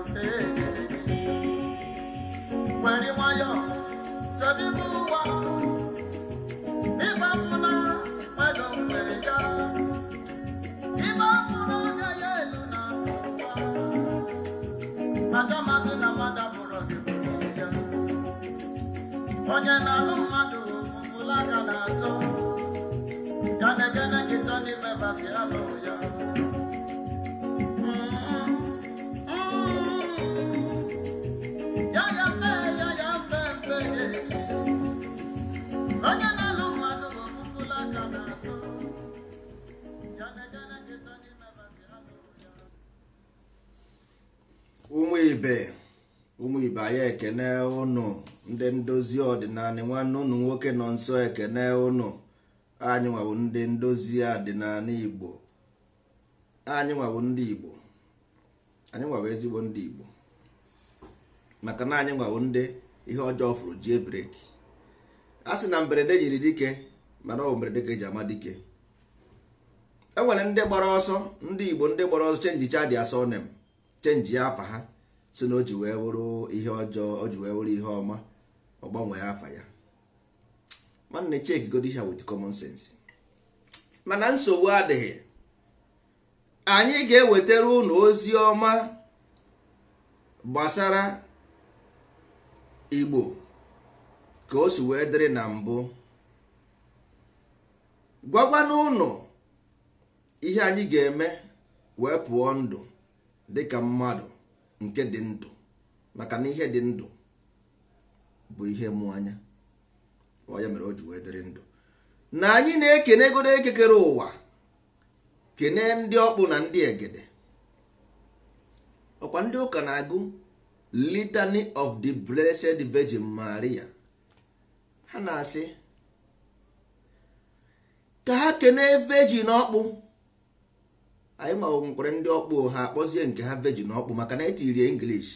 okay. nsọ ekene ụnụ anyị nwawo ndị ndozi ọdịnala igbo anyị nwawo ndị igbo anyị nwawo ezigbo ndị igbo maka na anyị nwawo ndị ihe ọjọọ fụrụ jie breki a sị na mberede yiri dike mana ọ mberede ka eji ama dike e nwere ndị gbara ọsọ ndị igbo ndị gbara ọsọ chenji chadi asọ chenji ya afa ha si na o ji wee bụrụ ihe ọjọọ o ji wee bụrụ ihe ọma ọ gbanwee afa ya nwanne cheki godisha wit common sense mana nsogbu adịghị anyị ga-ewetara unu ozi ọma gbasara igbo ka o si wee dịrị na mbụ gwagwana ụnụ ihe anyị ga-eme wee pụọ ndụ dịka mmadụ nke dị ndụ maka na ihe dị ndụ bụ ihe mụ anya ọ ya mere o ji wee dịrị ndụ na anyị na-ekene godo ekekere ụwa kene ndị ọkpụ na ndị egede ọkwa ndị ụka na-agụ litany of the blessed virgin maria ha na-asị ka ha kene virgin ọkpụ anyị nkwari ndị ọkpụ ha akpọzie nke ha virgin ọkpụ maka na etirie english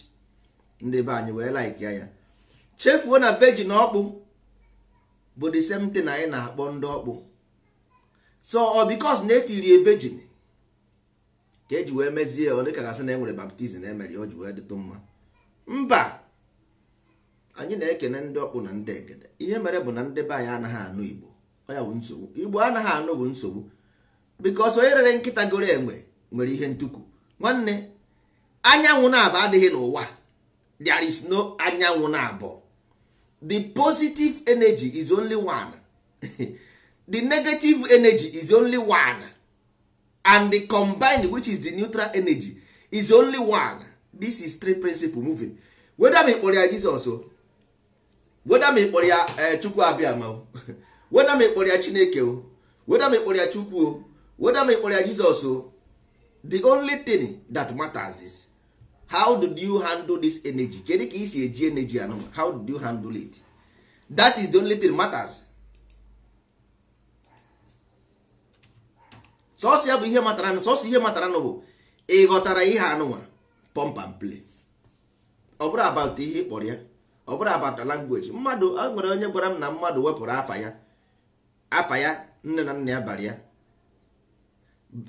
ndị be anyị wee like ya chefuo na virgin ọkpụ bụ the same thing anyị na-akpọ ndị ọkpụ so ọ bikos na etiri virgin ka eji wee mezie ọ dịka gasị na enwere baptizim emere o ji wee dịtụ mma mba anyị na-ekene ndị ọkpụ na ndị egede ihe mere bụ na ndị be anyị anaghị anụ igbo ọ ya bụ nsogbu igbo anaghị anụ bụ nsogbu bikos onye rere nkịta goro enwe nwere ihe ntukwu nwanne anyanwụ na-abụ adịghị n'ụwa there is no anyanwụ na-abụọ the positive energy is only one the negative energy is only one and the combined which is the neutral energy is only one this is three principle moving whether me kpọrọ ya jizọs weda m kpọrọ ya eh, chukwu abịama weda me kpọrọ ya chineke o weda me kpọrọ ya chukwu o weda me kpọrọ ya jizọs o the only thing that matters is how do you handle this energy kedu ka isi eji energy anụ how do you handle it that is the only thing matters sọsọ ya bụ ihe matara sọsọ ihe matara nụ bụ ịghọtara ihe anụnwa pump and play ọ bụrụ about ihe ịkpọrọ ya ọ bụrụ about language mmadụ e nwere onye gwara m na mmadụ wepụrụ afa ya afa ya nne na nna ya bara ya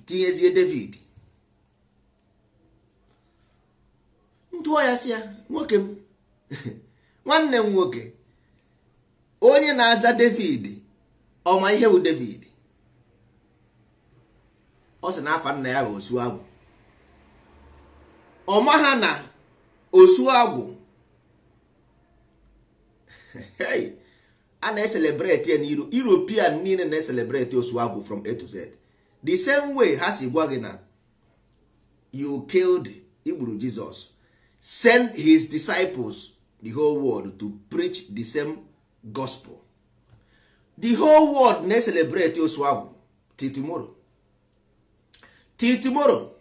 tinyezie David ntụọ ya si ya nwoke m nwanne m nwoke onye na-aza david ọma ihe bụ david ọ sị na afa nna ya bụ osu agwụ ọma ha na osu agwụ a na-eselebreti ya na european niile na-eselebreti osu agwụ from a to z the same way ha si gwa gị na you killed igburu jizọs send his disciples the whole world to preach the same gospel the whole world na-eselebrate osu ahụ till tomorrow till tomorrow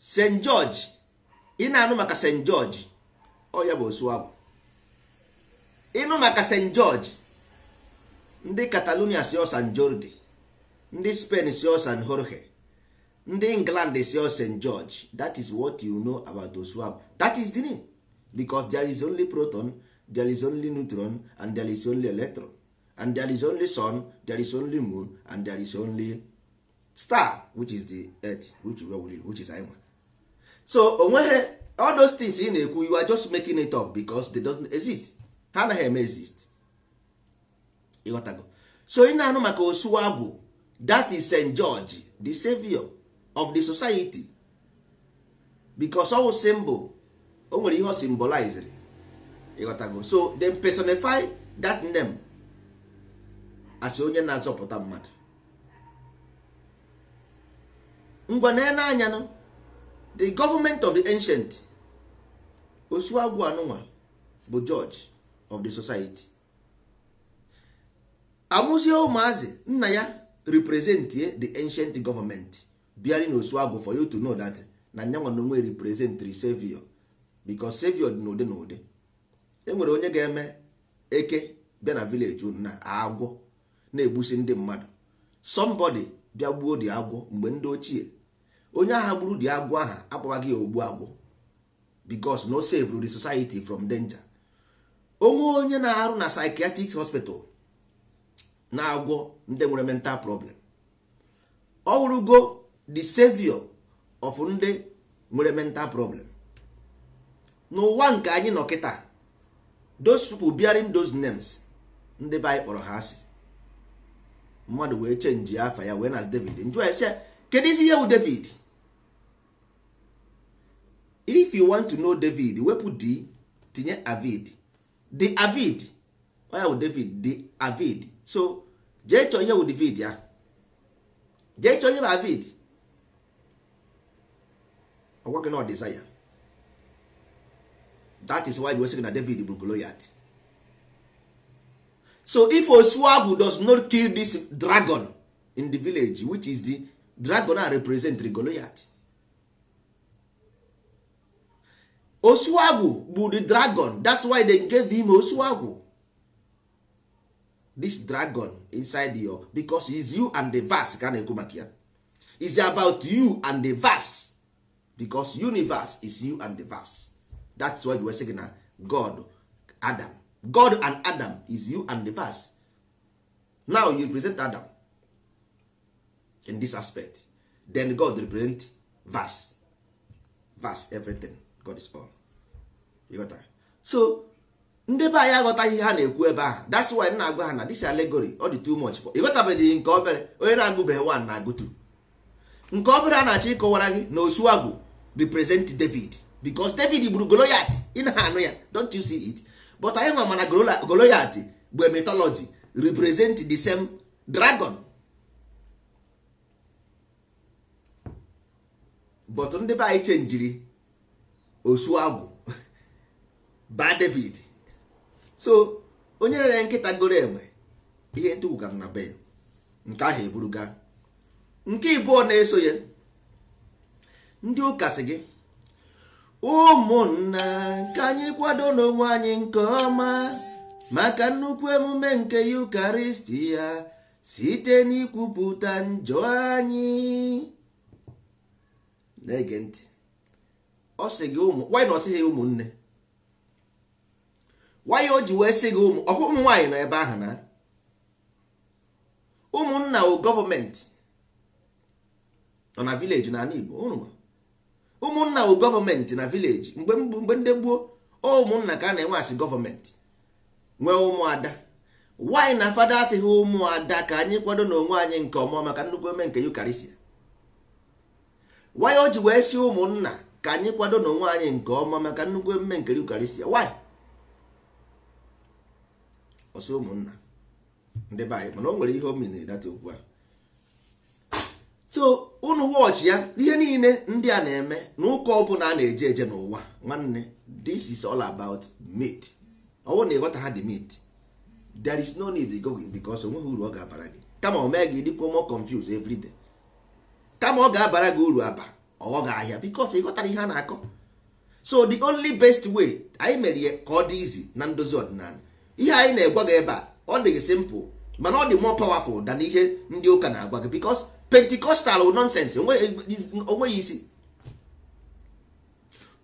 st george ị na-anụ maka st george ọ ya bụ osu ahụ ịnụ maka st george ndị catalonia si ọ jordi ndị spain si ọ jorge ndị england si o st george that is what you know about those swab that is the name because there is only proton there is only neutron and there is only electron and there is only sun there is only moon and there is only star which is the earth which, which is anyị so onweghe all those things ị na-ekwu you are just making it up because they don't exist ha anaghị eme exist ịghọtago so ị na-anụ maka osuwagwu that is st george the savior of the society because ọwụ symbol o nwere ihe o symbolized ịghọtago so they personify that name as onye na-azọpụta mmadụ ngwa na anya nọ the government of the ancient osuagwu anụnwa bụ George of the society amụzie ụmụazị nna ya represent the ancient government bearing osu agụ for you to know that na nyanwa na onwe represent savior because savior dị n'ụdị na ụdị enwere onye ga-eme eke bịa na vileji unu na agwọ na-egbusi ndị mmadụ somebody bịa gbuo dị agwọ mgbe ndị ochie onye agha gburu dị agwọ aha akpọwaghị ya ogbu agwọ because no save the society from danger onwe onye na-arụ na psychiatric hospital na-agwọ ndị nwere mental problem ọ wụrụgo the savior of ndị nwere mental problem n'ụwa nke anyị nọ kịta those people bearing those names ndị be anyị kpọrọ ha asị mmadụ wee chenji afa ya wee na david njụọ ya sị kedu isi ihe bụ david if you want to know david wepụ d tinye avid the avid oya bụ david the avid so jee chọọ ihe bụ david ya jee chọọ ihe bụ avid ọgwa gị na desire that is why wesị gị na david bụ goliath so if osuagu does not kill this dragon in the village which is the dragon a represent the goliath osuagu bụ the dragon that's why they gave him osuagu this dragon inside your because is you and the verse ka na-ekwu maka ya is about you and the verse because universe is you and the verse that's why you were saying na god adam god and adam is you and the verse now you represent adam in this aspect then god represent verse verse everything god is all you got that? so ndị be anyị aghọtaghị ha na-ekwu ebe ahụ that's why m na-agwa ha na this allegory ọ dị too much for ịghọtabeghị nke obere onye na-agụbeghị one na-agụ two nke obere a na-achọ ịkọwara gị na osuagwu represent david because david gburu goloyat ị na-anụ ya don't you see it but anyị nwa mana goloyat bụ mythology represent the same dragon but ndị be anyị chenjiri osu agwụ ba david so onye rere nkịta goro enwe ihe ntụgwụ na be nke ahụ eburuga nke ọ na-eso ya ndị ụka sị gị ụmụnna ka anyị kwado n'onwe anyị nke ọma maka nnukwu emume nke yukaristi ya site n'ikwupụta njọ anyị na-ege ntị ọ sị gị ụmụ nwanyị na ọ ụmụnne nwanyị o ji wee sị gị ụmụ ọkwa nwaanyị nọ ebe ahụ na ụmụnna o gọọmenti nọ na vileji n'ala Igbo ụnụ ụmụnna bụ gọọmenti na vileji mgbe ndị gboo ụmụnna ka a na-enwe asị gọọmenti nwee ụmụada nwaanyị na fada asịghị ụmụada ka anyị kwado na onwe anyị nke ọma maka nnukwu eme nke yukarisia nwaanyị o ji wee si ụmụnna ka anyị kwado na onwe anyị nke ọma maka nnukwu eme nke yukarisia nwaanyị ọsọ ụmụnna ndị be anyị mana o nwere ihe o miniri data okwu ahụ so unu wọchị ya ihe niile ndị a na-eme na ụka ọbụla a na-eje eje n'ụwa nwanne this is all about meat ọ bụrụ na ịghọta ha dị meat there is no need go because onweghị uru ọ ga-abara gị kama o mee gị dịkwa mo confuse every day kama ọ ga-abara gị uru aba ọghọ gị ahịa because ịghọtara ihe a na-akọ so the only best way anyị mere ya ka ọ dị izi na ndozi ọdịnala ihe anyị na-egwa gị ebe a ọ dị gị simple mana ọ dị more powerful than ihe ndị ụka na-agwa gị because pentikọstal nonsense onweghị isi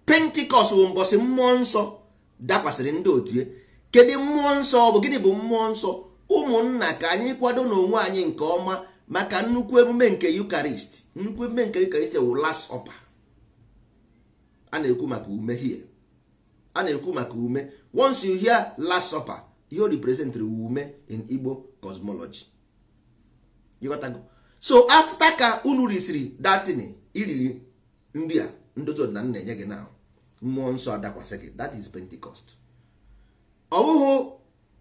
pentikọst bụ mbọsị mmụọ nsọ dakwasịrị ndị otie eh? kedu mmụọ nsọ bụ gịnị bụ mmụọ nsọ ụmụnna ka anyị kwado n'onwe anyị nke ọma maka nnukwu emume nke Eucharist nnukwu emume nke Eucharist wụ last supper a na-ekwu maka ume hie a na-ekwu maka ume once you hear last supper ihe o ume in igbo cosmology so afta ka unu risiri datin iriri nri a ndozi na nna enye gị na mmụọ nsọ adakwasị gị that is pentecost ọwụhụ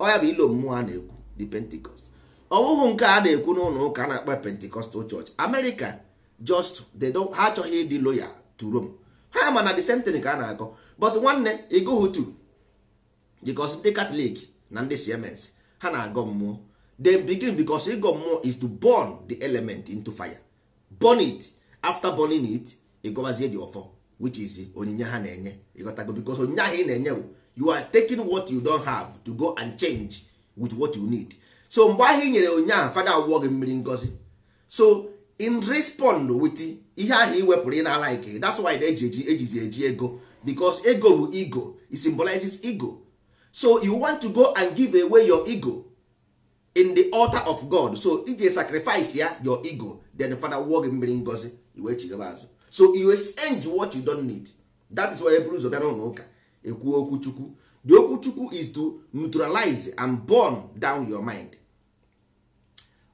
ọya bụ ilo mmụọ a na-ekwu the pentecost ọwụhụ nke a na-ekwu n'ụlọ ụka a na-akpa pentecostal church america just they don't ha achọghị ịdị loyal to rome ha mana na the same thing ka a na-akọ but nwanne ịgụghị tu because ndị katọlik na ndị cms ha na-agọ mmụọ Dem begin because ịgọ mmụọ is to burn the element into fire burn it after burning it ịgọbazie dị Ofo, which is onyinye ha na-enye ịghọtago because onyinye ahụ ị na-enye you are taking what you don have to go and change with what you need so mgbe ahụ ị nyere onyinye ahụ fada awụọ gị mmiri ngozi so in respond with ihe ahụ ị wepụrụ ị na like that's why eji eji ejizi eji ego because ego bụ ego it symbolizes ego so you want to go and give away your ego in the altar of god so ije sacrifice ya your ego then Fada father wụọ gị mmiri ngozi iwe chigaba azụ so you exchange what you don need that is why eburu ụzọ bịara n'ụlọ ụka ekwuo okwuchukwu the okwuchukwu is to neutralize and burn down your mind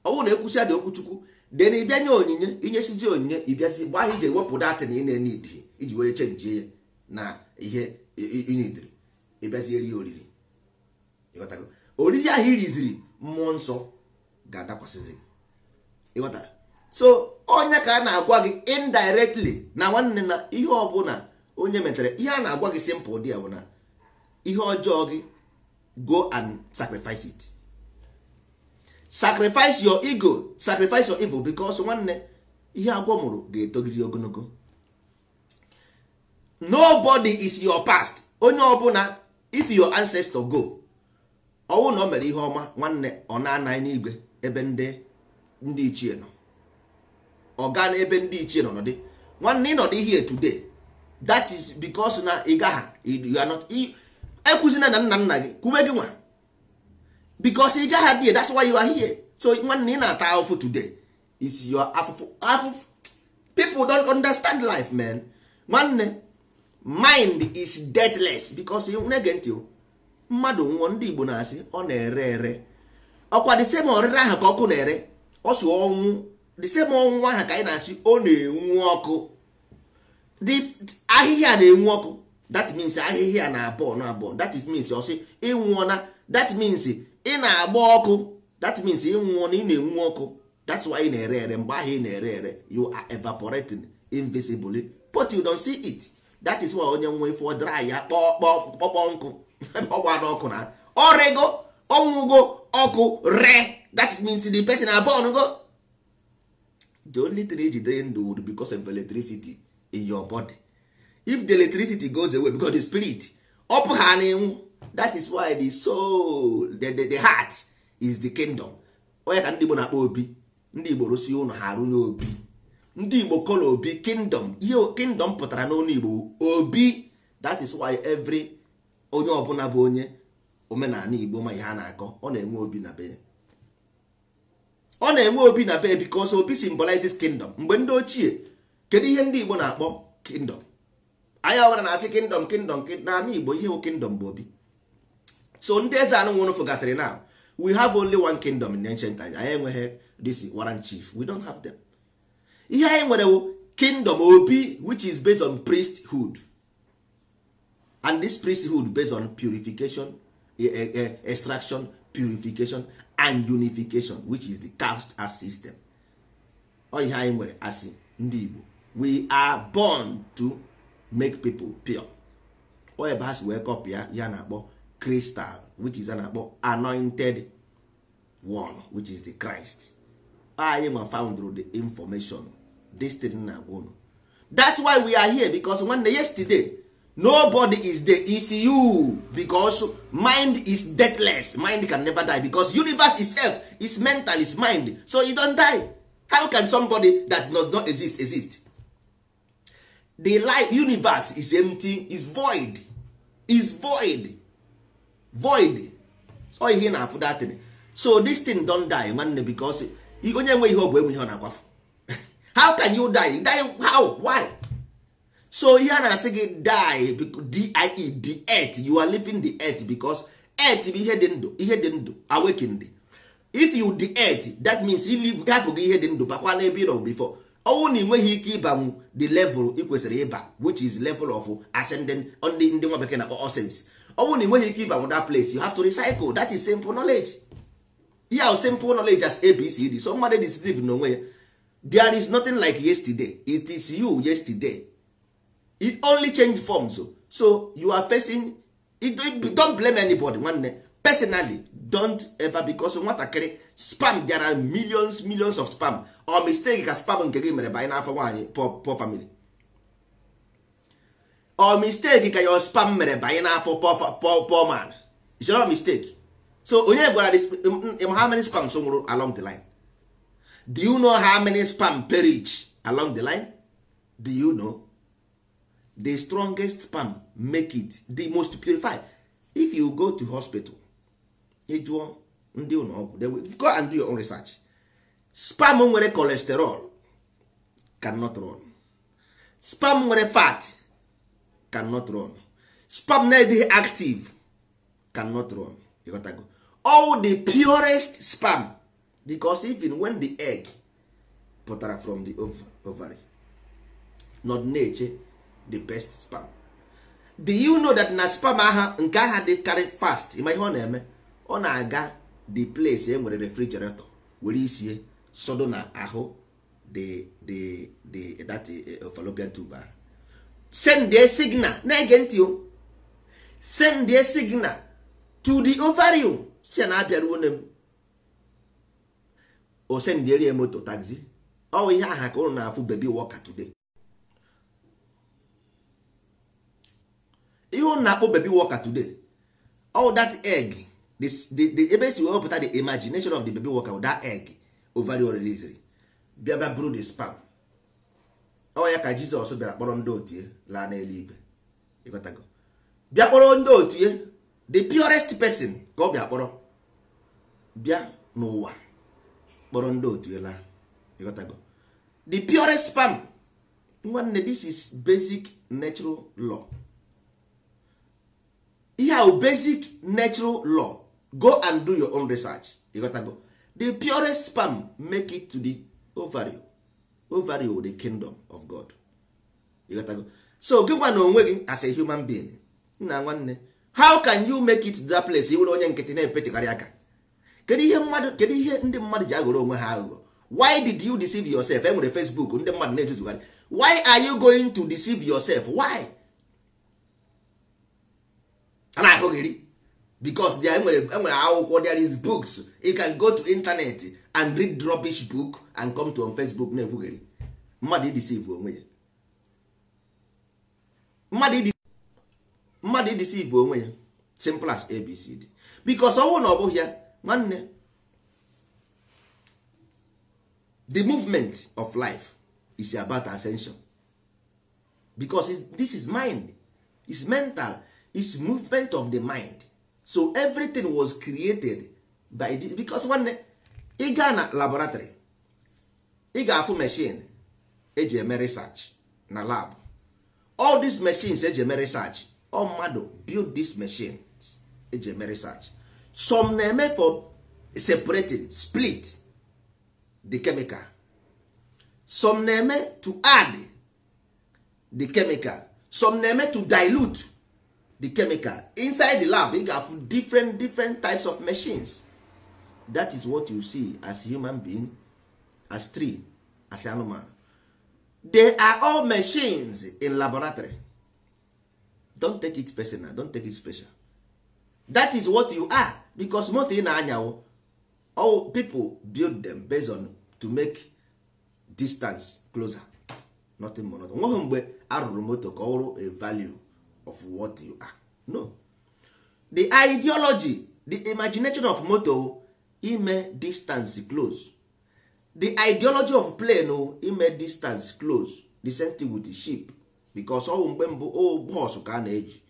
ọ bụrụ na ekwusi dị okwuchukwu chukwu then ịbịa nye onyinye inyesizi onyinye ịbịazi gbaa ha ije wepụ na ị na-enid iji wee chenjie ya na ihe inidiri ịbịazi eri oriri oriri ahụ iriziri mmụọ nsọ ga-adakwasịzi gị so onye ka a na-agwa gị indirectly na nwanne na ihe ọbụla onye metere ihe a na-agwa gị simple dị ya bụ na ihe ọjọọ gị go and sacrifice it sacrifice your ego sacrifice your evil because nwanne ihe agwọ mụrụ ga etogiri ogologo nobody is your past onye ọbụla if your ancestor go ọnwụ na o mere ihe ọma nwanne ọ na-anaghị n'igwe ebe ndị ndị ichie nọ ọ gaa n'ebe ndị ichie nọ nọdị nwanne ị ịnọdị ihe today that is because na ị gagha you are not ekwuzina na nna nna gị kwube gị nwa because ị gaha dị that's why you are so nwanne ị na-ata afụfụ today is your afụfụ afụfụ people don't understand life man nwanne mind is deathless because ị na-ege ntị o mmadụ nwụọ ndị Igbo na-asị ọ na-ere ere ọkwa the same ọrịre ahụ ka ọkụ na-ere ọ si ọnwụ the same ọnwụ ahụ ka anyị na-asị ọ na-enwu ọkụ ahịhịa na-enwu ọkụ that means ahịhịa na-abụọ na abụọ that is means ọ sị ịnwụọ that means ị na-agba ọkụ that means ịnwụọ na ị na-enwu ọkụ that's why ị na-ere ere mgbe ahụ ị na-ere ere you are evaporating invisibly but you don't see it that is why onye nwe ifo dry ya kpọọ kpọọ nkụ ọgwa n'ọkụ na ọrịgo ọnwụgo ọkụ re that means the person abon go the only thing ejidere ndụ would because of electricity in your body if the electricity goes away because the spirit ọpụ ha na that is why the soul the, the, the heart is the kingdom onye ka ndị igbo na-akpọ obi ndị igbo rụsi ụlọ ha arụ obi ndị igbo kọla obi kingdom ihe kingdom pụtara n'ọnụ igbo obi that is why every onye ọbụla bụ onye omenala igbo ma ihe a na-akọ ọ na-enwe obi na be ọ na-enwe obi na be bikos obi symbolizes kingdom mgbe ndị ochie kedu ihe ndị igbo na-akpọ kingdom anyị ọbụla na-asị kingdom kingdom n'ala igbo ihe bụ kingdom bụ obi so ndị eze anụ nwụrụ gasịrị na we have only one kingdom in ancient times anyị enweghị this warrant chief we don't have them ihe anyị nwere kingdom obi which is based on priesthood and this priesthood based on purification eh, eh, eh, extraction purification and unification which is the caste as system ọ anyị nwere asị ndị Igbo we are born to make people pure ọ ebe ha si wee ya na-akpọ crystal which is a na-akpọ anointed one which is the Christ anyị found foundro the information this thing na-agwa that's why we are here because nwanne yesterday nobody is dey is you because mind is deathless mind can never die because universe itself is mental is mind so you don die how can somebody that does not exist exist the life universe is empty is void is void void so ihe na afụ that so this thing don die nwanne because onye nwe ihe ọ bụ enwe ọ na-akwafu how can you die die how why so ihe a na-asị gị die die e, the earth you are living the earth because earth bụ ihe dị ndụ ihe dị ndụ awakened if you the earth that means you live hapụ gị ihe dị ndụ bakwa n'ebe ịrọ before ọnwụ na ịnweghị ike ịbanwu the level ị kwesịrị ịba which is level of ascending ndị ndị nwa bekee na-akpọ essence ọnwụ na ịnweghị ike ịbanwu that place you have to recycle that is simple knowledge ihe simple knowledge as abcd so mmadụ decisive n'onwe ya there is nothing like yesterday it is you yesterday it only change forms oh. so you are facing don't blame anybody nwanne personally don't ever because nwatakịrị spam there are millions millions of spam or mistake ka spam nke gị mere banye n'afọ nwaanyị poor family or mistake ka your spam mere banye n'afọ poor man it's not mistake so onye gwara gị how many spams nwụrụ along the line do you know how many spam perish along the line do you know the strongest sperm make it the most purified if you go to hospital ịjụọ ndị ụlọ ọgwụ go and do your own research sperm nwere cholesterol cannot run sperm nwere fat cannot run sperm na-adịghị active cannot run ịghọtago all the purest sperm because even when the egg pụtara from the ovary not na-eche the best spam do you know that na spam aha nke aha dị karị fast ịma ihe ọ na-eme ọ na-aga the place e nwere refrigerator were isie sodo na ahụ the the the that eh, fallopian tube sende signal na-ege ntị o send signal to the ovarium si na abịaruo nne m o sendiere moto taxi ọ ihe aha ka ụrụ na-afụ baby walker today ihe ụnụ na-akpọ baby walker today all that egg the ebe e si wepụta the imagination of the baby with that egg ovarian release bịa bịa bụrụ the spam ọ ya ka jizọs bịara kpọrọ ndị otie laa n'eluigwe ịghọtago bịa kpọrọ ndị otie the purest person ka ọ bịa kpọrọ bịa n'ụwa kpọrọ ndị otie laa ịghọtago the purest spam nwanne this is basic natural law ihe a basic natural law go and do your own research you the purest palm make it to the ovary ovary with the kingdom of god you so gịnwa na onwe gị as a human being nna nwanne how can you make it to that place iwere onye nkịtị na-epetekarị aka kedu ihe mmadụ ihe ndị mmadụ ji aghọrọ onwe ha aghụghọ why did you deceive yourself enwere facebook ndị mmadụ na-ezuzugharị why are you going to deceive yourself why a na-akụghị ri because there nwere akwụkwọ there is books you can go to internet and read rubbish book and come to on Facebook na-ekwughị ri mmadụ ideceive onwe ya mmadụ onwe ya simple as abcd because ọnwụ na ọ bụghị ya nwanne the movement of life is about ascension because this is mind is mental is movement of the mind so everything was created by the, because nwanne ị gaa na laboratory ị ga-afụ machine eji eme research na lab all these machines eji eme research all mmadụ build these machines eji eme research some na-eme for separating split the chemical some na-eme to add the chemical some na-eme to dilute the chemical inside the lab ị ga-afụ different different types of machines that is what you see as human being as tree as anụmanụ they are all machines in laboratory don take it personal don take it special that is what you are because most ị na-anyawo all people build them based on to make distance closer nothing more nothing nweghị mgbe arụrụ moto ka ọ wụrụ a value of what you are no the ideology the imagination of moto ime distance close the ideology of plane ime distance close the same thing with the ship because ọwụ mgbe mbụ o bọs ka a na-eji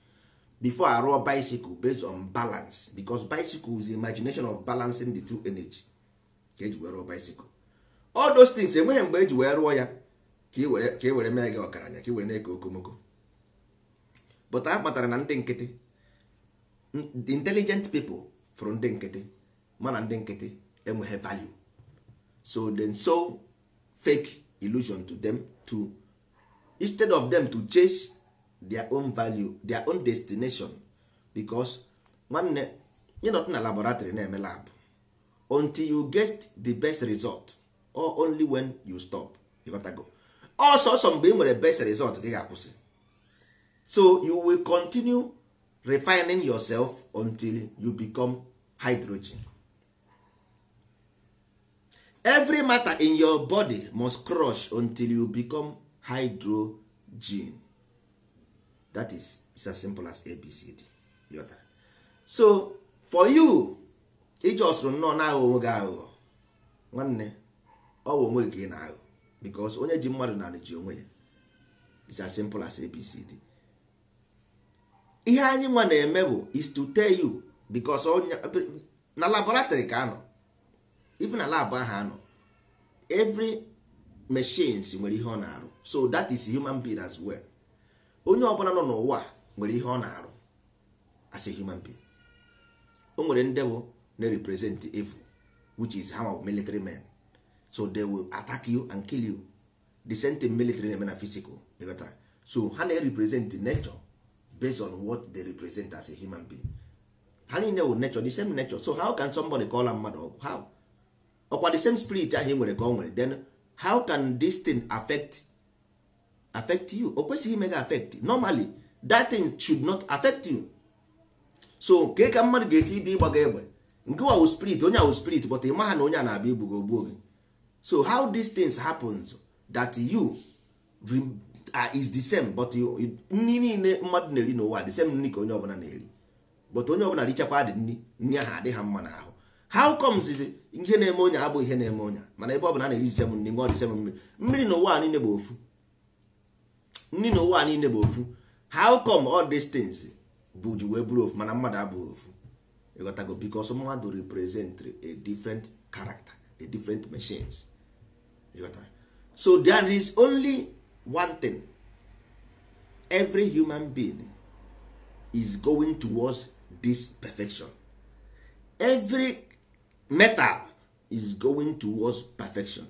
before rụọ bicycle based on balance because bicycle is the imagination of balancing the two energy ka eji were rụọ bicycle all those things enweghị mgbe eji wee rụọ ya ka ị e e were mee gị ọgaranya ka ị e were na-eke okomoko pụta ha kpatara na ndị nkịtị the hmm, intelligent people from ndị nkịtị mana ndị nkịtị enweghị value so then so fake illusion to them to instead of them to chase their own value their own destination because nwanne ịnọdụ na laboratory na-eme lab until you get the best result or only when you stop ịghọtago ọsọsọ mgbe ị nwere best result gị ga-akwụsị so you will continue refining yourself until you become hydrogen every matter in your body must crush until you become hydrogen that is it's as simple as abcd yota so for you iji ọsụrụ nnọọ na-aghọ onwe gị aghụghọ nwanne ọ onwe gị na-aghụ bikos onye ji mmadụ na ji onwe ya it's as simple as abcd ihe anyị nwa na-eme bụ is to tell you because na laboratory ka anọ even na lab ahụ anọ every machines nwere ihe ọ na-arụ so that is human being as well onye ọbụla nọ n'ụwa nwere ihe ọ na-arụ as a human being o nwere ndị na-represent evil which is ha of military men so they will attack you and kill you the same thing military na-eme na physical so ha na-represent nature based on what they represent as a human being ha niile wụ nature the same nature so how can somebody call a mmadụ ọgwụ how ọkwa the same spirit ahụ ị nwere ka ọ nwere then how can this thing affect affect you o kwesịghị ime gị affect normally that thing should not affect you so ka ka mmadụ ga-esi ibe ịgba gị egbe nke wa spirit onye wu spirit but ịma ha na onye a na-abịa igbu gị gị so how these things happens that you Ah, is the same but nri niile mmadụ na-eri n'ụwa the same nri ka onye ọbụla na-eri but onye ọbụla richakwa dị nri nri ahụ adịghị mma n'ahụ how comes ihe na-eme onye abụ ihe na-eme onye mana ebe ọbụla na-eri disem nri ṅụọ disem mmiri mmiri n'ụwa niile bụ ofu nri n'ụwa niile bụ ofu how come all these things bụ ji wee bụrụ ofu mana mmadụ abụghị ofu ịghọtago because mmadụ represent a different character a different machines ịghọtara so there is only one thing every human being is going towards this perfection every metal is going towards perfection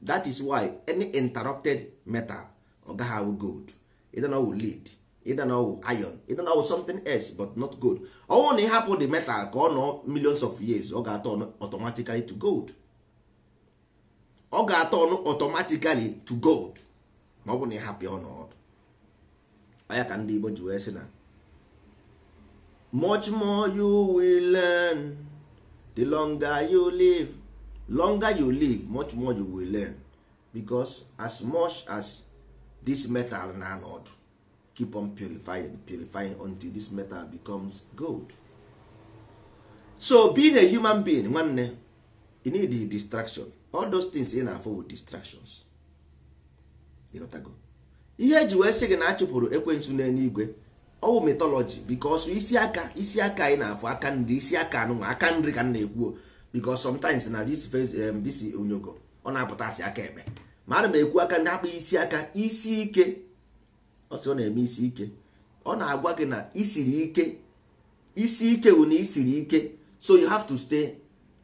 that is why any interrupted metal oga how awụ gold ịdana lead ịdana know iron ịdana know something else but not gold ọnwụ na ịhapụ the metal ka ọ nọ millions of years ọ ga turn automatically to gold ọ ga turn automatically to gold ma ọ bụrụ na ị hapụ ya ọnọdụ anya ka ndị Igbo ji wee sị na much more you will learn the longer you live longer you live much more you will learn because as much as this metal na anọdụ keep on purifying purifying until this metal becomes gold so being a human being nwanne you need the distraction all those things ị na-afọ with distractions ịghọtago ihe eji wee sị gị na a chụpụrụ ekwensu n'eluigwe ọwụ mitọlọji bikọsụ isi aka isi aka anyị na-afụ aka nri isi aka anụnwa aka nri ka m na-ekwuo bikọs sometimes na dis onyogo ọ na-apụta asị aka ekpe ma ana m ekwu aka ndị akpụ isi aka isi ike ọ ọ na-eme isi ike ọ na-agwa gị na isiri ike isi ike wụ na isiri ike so you have to stay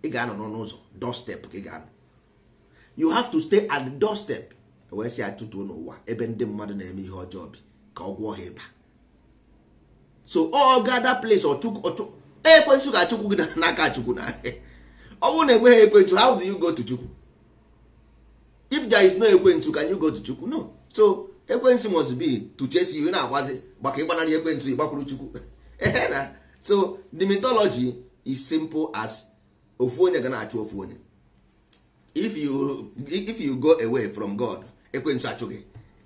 ị ga-anọ n'ụzọ doorstep ka ị ga-anọ you have to stay at the doorstep wee si achụtuo n'ụwa ebe ndị mmadụ na-eme ihe ọjọọ bi ka ọ gwọọ ha ịba so ọ ga that place e, ekwentị ga achukwu gị n'aka chukwu na ọ bụrụ na enweghị ekwentị how do you go to chukwu if there is no ekwentị can you go to chukwu no so ekwentị must be to chase you na-agwazi maka ịgbanarị ekwentị ịgbakwuru chukwu na so the mythology is simple as ofu onye ga na-achụ ofu onye if you if you go away from god ekwensu achụghị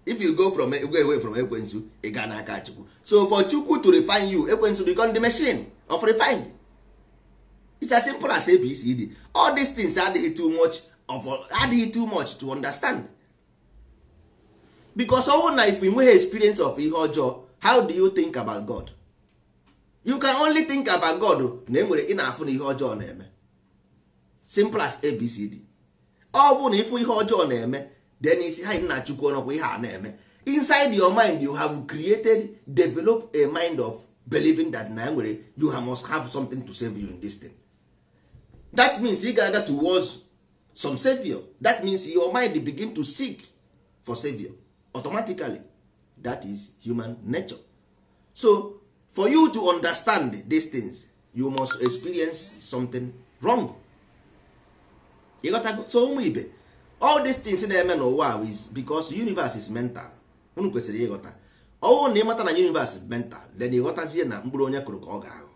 if you go from go away from ekwensu ị gaa n'aka chukwu so for chukwu to refine you ekwensu become the machine of refine it's as simple as abcd all these things adịghị too much of adịghị too much to understand because ọwụ na if we nweghị experience of ihe ọjọọ how do you think about god you can only think about god na enwere ị na-afụ na ihe ọjọọ na-eme simple as abcd ọ bụ na ịfụ ihe ọjọọ na-eme then isi ha na chukwu ọnọkwa ihe a na-eme inside your mind you have created develop a mind of believing that na nwere you must have something to save you in this thing that means ị ga-aga towards some savior that means your mind begin to seek for savior automatically that is human nature so for you to understand these things you must experience something wrong ịghọtago so ụmụ ibe all these things na-eme n'ụwa is because universe is mental unu kwesịrị ịghọta ọnwụ na ịmata na universe is mental then ịghọtazie na mkpụrụ onye kụrụ ka ọ ga ahụ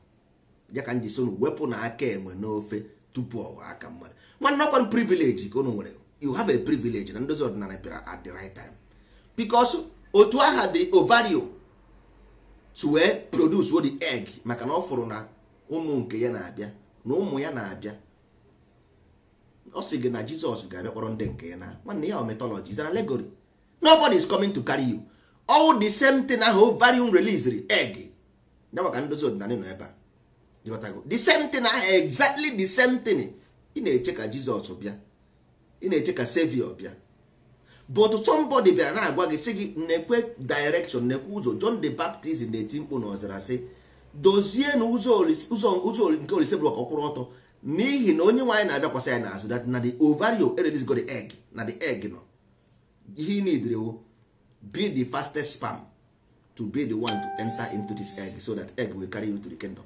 ya ka nji sonu wepụ na aka enwe n'ofe tupu ọwa aka mmadụ nwanne ọkwa privilege ka unu nwere you have a privilege na ndozi ọdịnala bịara at the right time because otu aha dị ovario to produce produce the egg maka na ọ fụrụ na ụmụ nke ya na-abịa na ụmụ ya na-abịa ọ sị gị na jizọs ga-abịa ndị nke ya na nwanne ya metọlọji is an allegory nobody is coming to carry you all the same thing ahụ ovarium release egg ya maka ndozi ọdịnala nọ ebe a the same thing ahụ exactly the same thing ị na-eche ka jizọs bịa ị na-eche ka savior bịa but somebody bịara na-agwa gị sị gị na-ekwe direction na-ekwe ụzọ John the Baptist na-eti mkpu Ọzara sị dozie na ụzọ nke olise bụrụ ka ọtọ n'ihi na onye nwaanyị na-abịakwasị anyị n'azụ that na the ovario go the egg na the egg nọ ihe nidrewo be the fastest sperm to be the one to enter into this egg so that egg will carry you to the kingdom.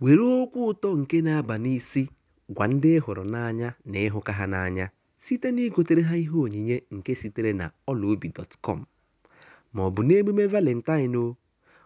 were okwu ụtọ nke na-aba n'isi gwa ndị hụrụ n'anya na ịhụka ha n'anya site na igotere ha ihe onyinye nke sitere na ọlaobi dọtkọm ma n'emume valentine o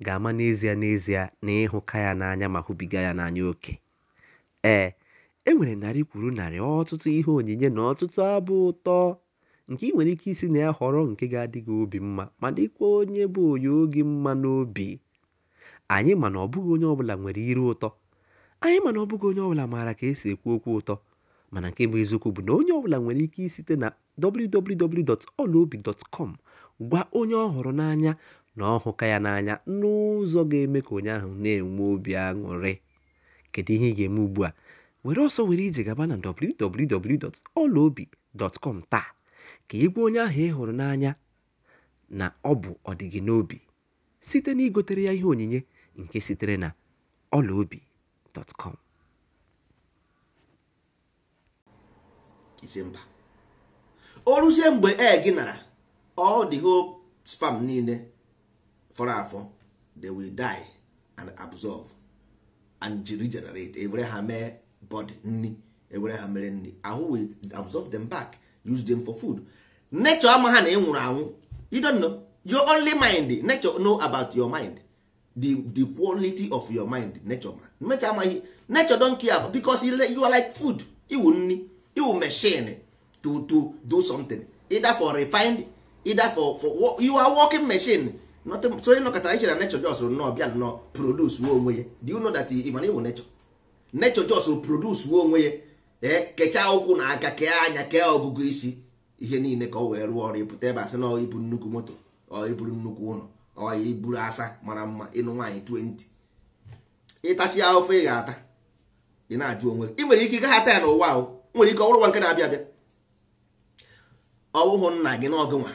ga-ama n'ezie n'ezie na ịhụka ya n'anya ma hụbiga ya n'anya oke ee e nwere narị kwuru narị ọtụtụ ihe onyinye na ọtụtụ abụ ụtọ nke ị nwere ike isi na ya họrọ nke ga adịghị obi mma ma dịkwa onye bụ onye oge mma n'obi anyị mana ọbụghị onye ọbụla nwere iru ụtọ anyị mana ọbụghị onye ọbụla maara ka esi ekwu okwu ụtọ mana nke bụ eziokwu bụ na onye ọbụla nwere ike isite na www.olaobi.com gwa onye ọ hụrụ n'anya na ọ ya n'anya n'ụzọ ga-eme ka onye ahụ na-enwe obi aṅụrị kedu ihe ị ga-eme ugbu a were ọsọ were ije gaba na www.ọlaobi.com taa ka ị gwa onye ahụ ị hụrụ n'anya na ọ bụ ọdịgị n'obi site na igotere ya ihe onyinye nke sitere na ọlaobi.com o ruzie mgbe e gị ọ spam niile fọrọ afọ they will die and absorb and regenerate ewere ha mee body nri ewere ha mere nri ahụ will absorb them back use them for food nature ama ha na ị nwụrụ anwụ you don't know your only mind nature know about your mind the, the quality of your mind nature ma nature amaghị nature don't care because you are like food iwu nri iwu machine to, to do something either for refined either for, for you are working machine so onye nọkọta iche na nechọ jos nnọọ bịa nnọọ produce uwe onwe ya dị ụnọ dat ịmana ịwụ nechọ nechọ jos produce uwe onwe ya ee eh, kechaa ụkwụ na aka kee anya kee ọgụgụ isi ihe niile ka ọ wee rụọ ọrụ ịpụta ebe asị na ọ ibu nnukwu moto ọ iburu nnukwu ụlọ ọ iburu asa mara mma ịnụ nwaanyị 20 ịtasị ofe ị ga-ata ị na-ajụ onwe ị nwere ike ịgagha ata ya n'ụwa ahụ nwere ike ọ nwa nke na-abịa abịa ọ bụghị nna gị n'ọgụ nwa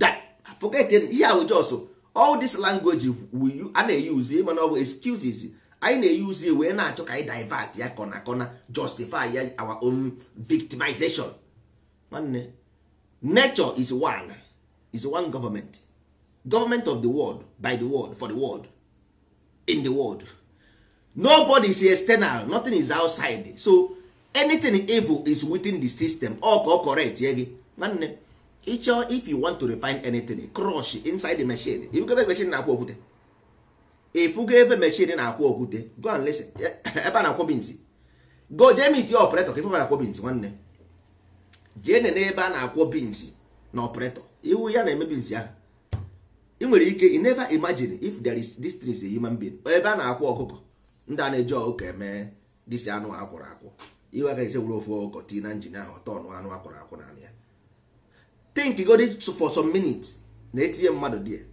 da forget ihe ahụ jos all this language a na-eyuzu ịma eh, na ọ bụ excuses anyị na-eyuzu ya e wee na-achọ ka anyị divert ya kọna kọna justify ya our own victimization nwanne nature is one is one government government of the world by the world for the world in the world nobody is external nothing is outside so anything evil is within the system ọ ka ọ correct ye gị nwanne ịchọ if you want to refine anything crush inside the machine ifugo ebe machine na-akwụ okwute ifugo ebe machine na-akwụ okwute go and listen eh, ebe a na-akwọ binzi go jee mit ya ọpretọ ka ife na-akwọ binzi nwanne jee nene ebe a na-akwọ binzi na ọpretọ iwu ya na-eme binzi ya ị nwere ike you never imagine if there is this thing is a human being ebe a na-akwọ ọkụkọ ndị a na-eji ọkụkọ eme disi anụ akwụrụ akwụ iwe agaghị ese were ofu ọkụkọ tii na njin ahụ ọtọ ọnụ anụ akwụrụ akwụ naanị ya think god for some minutes na etinye mmadụ there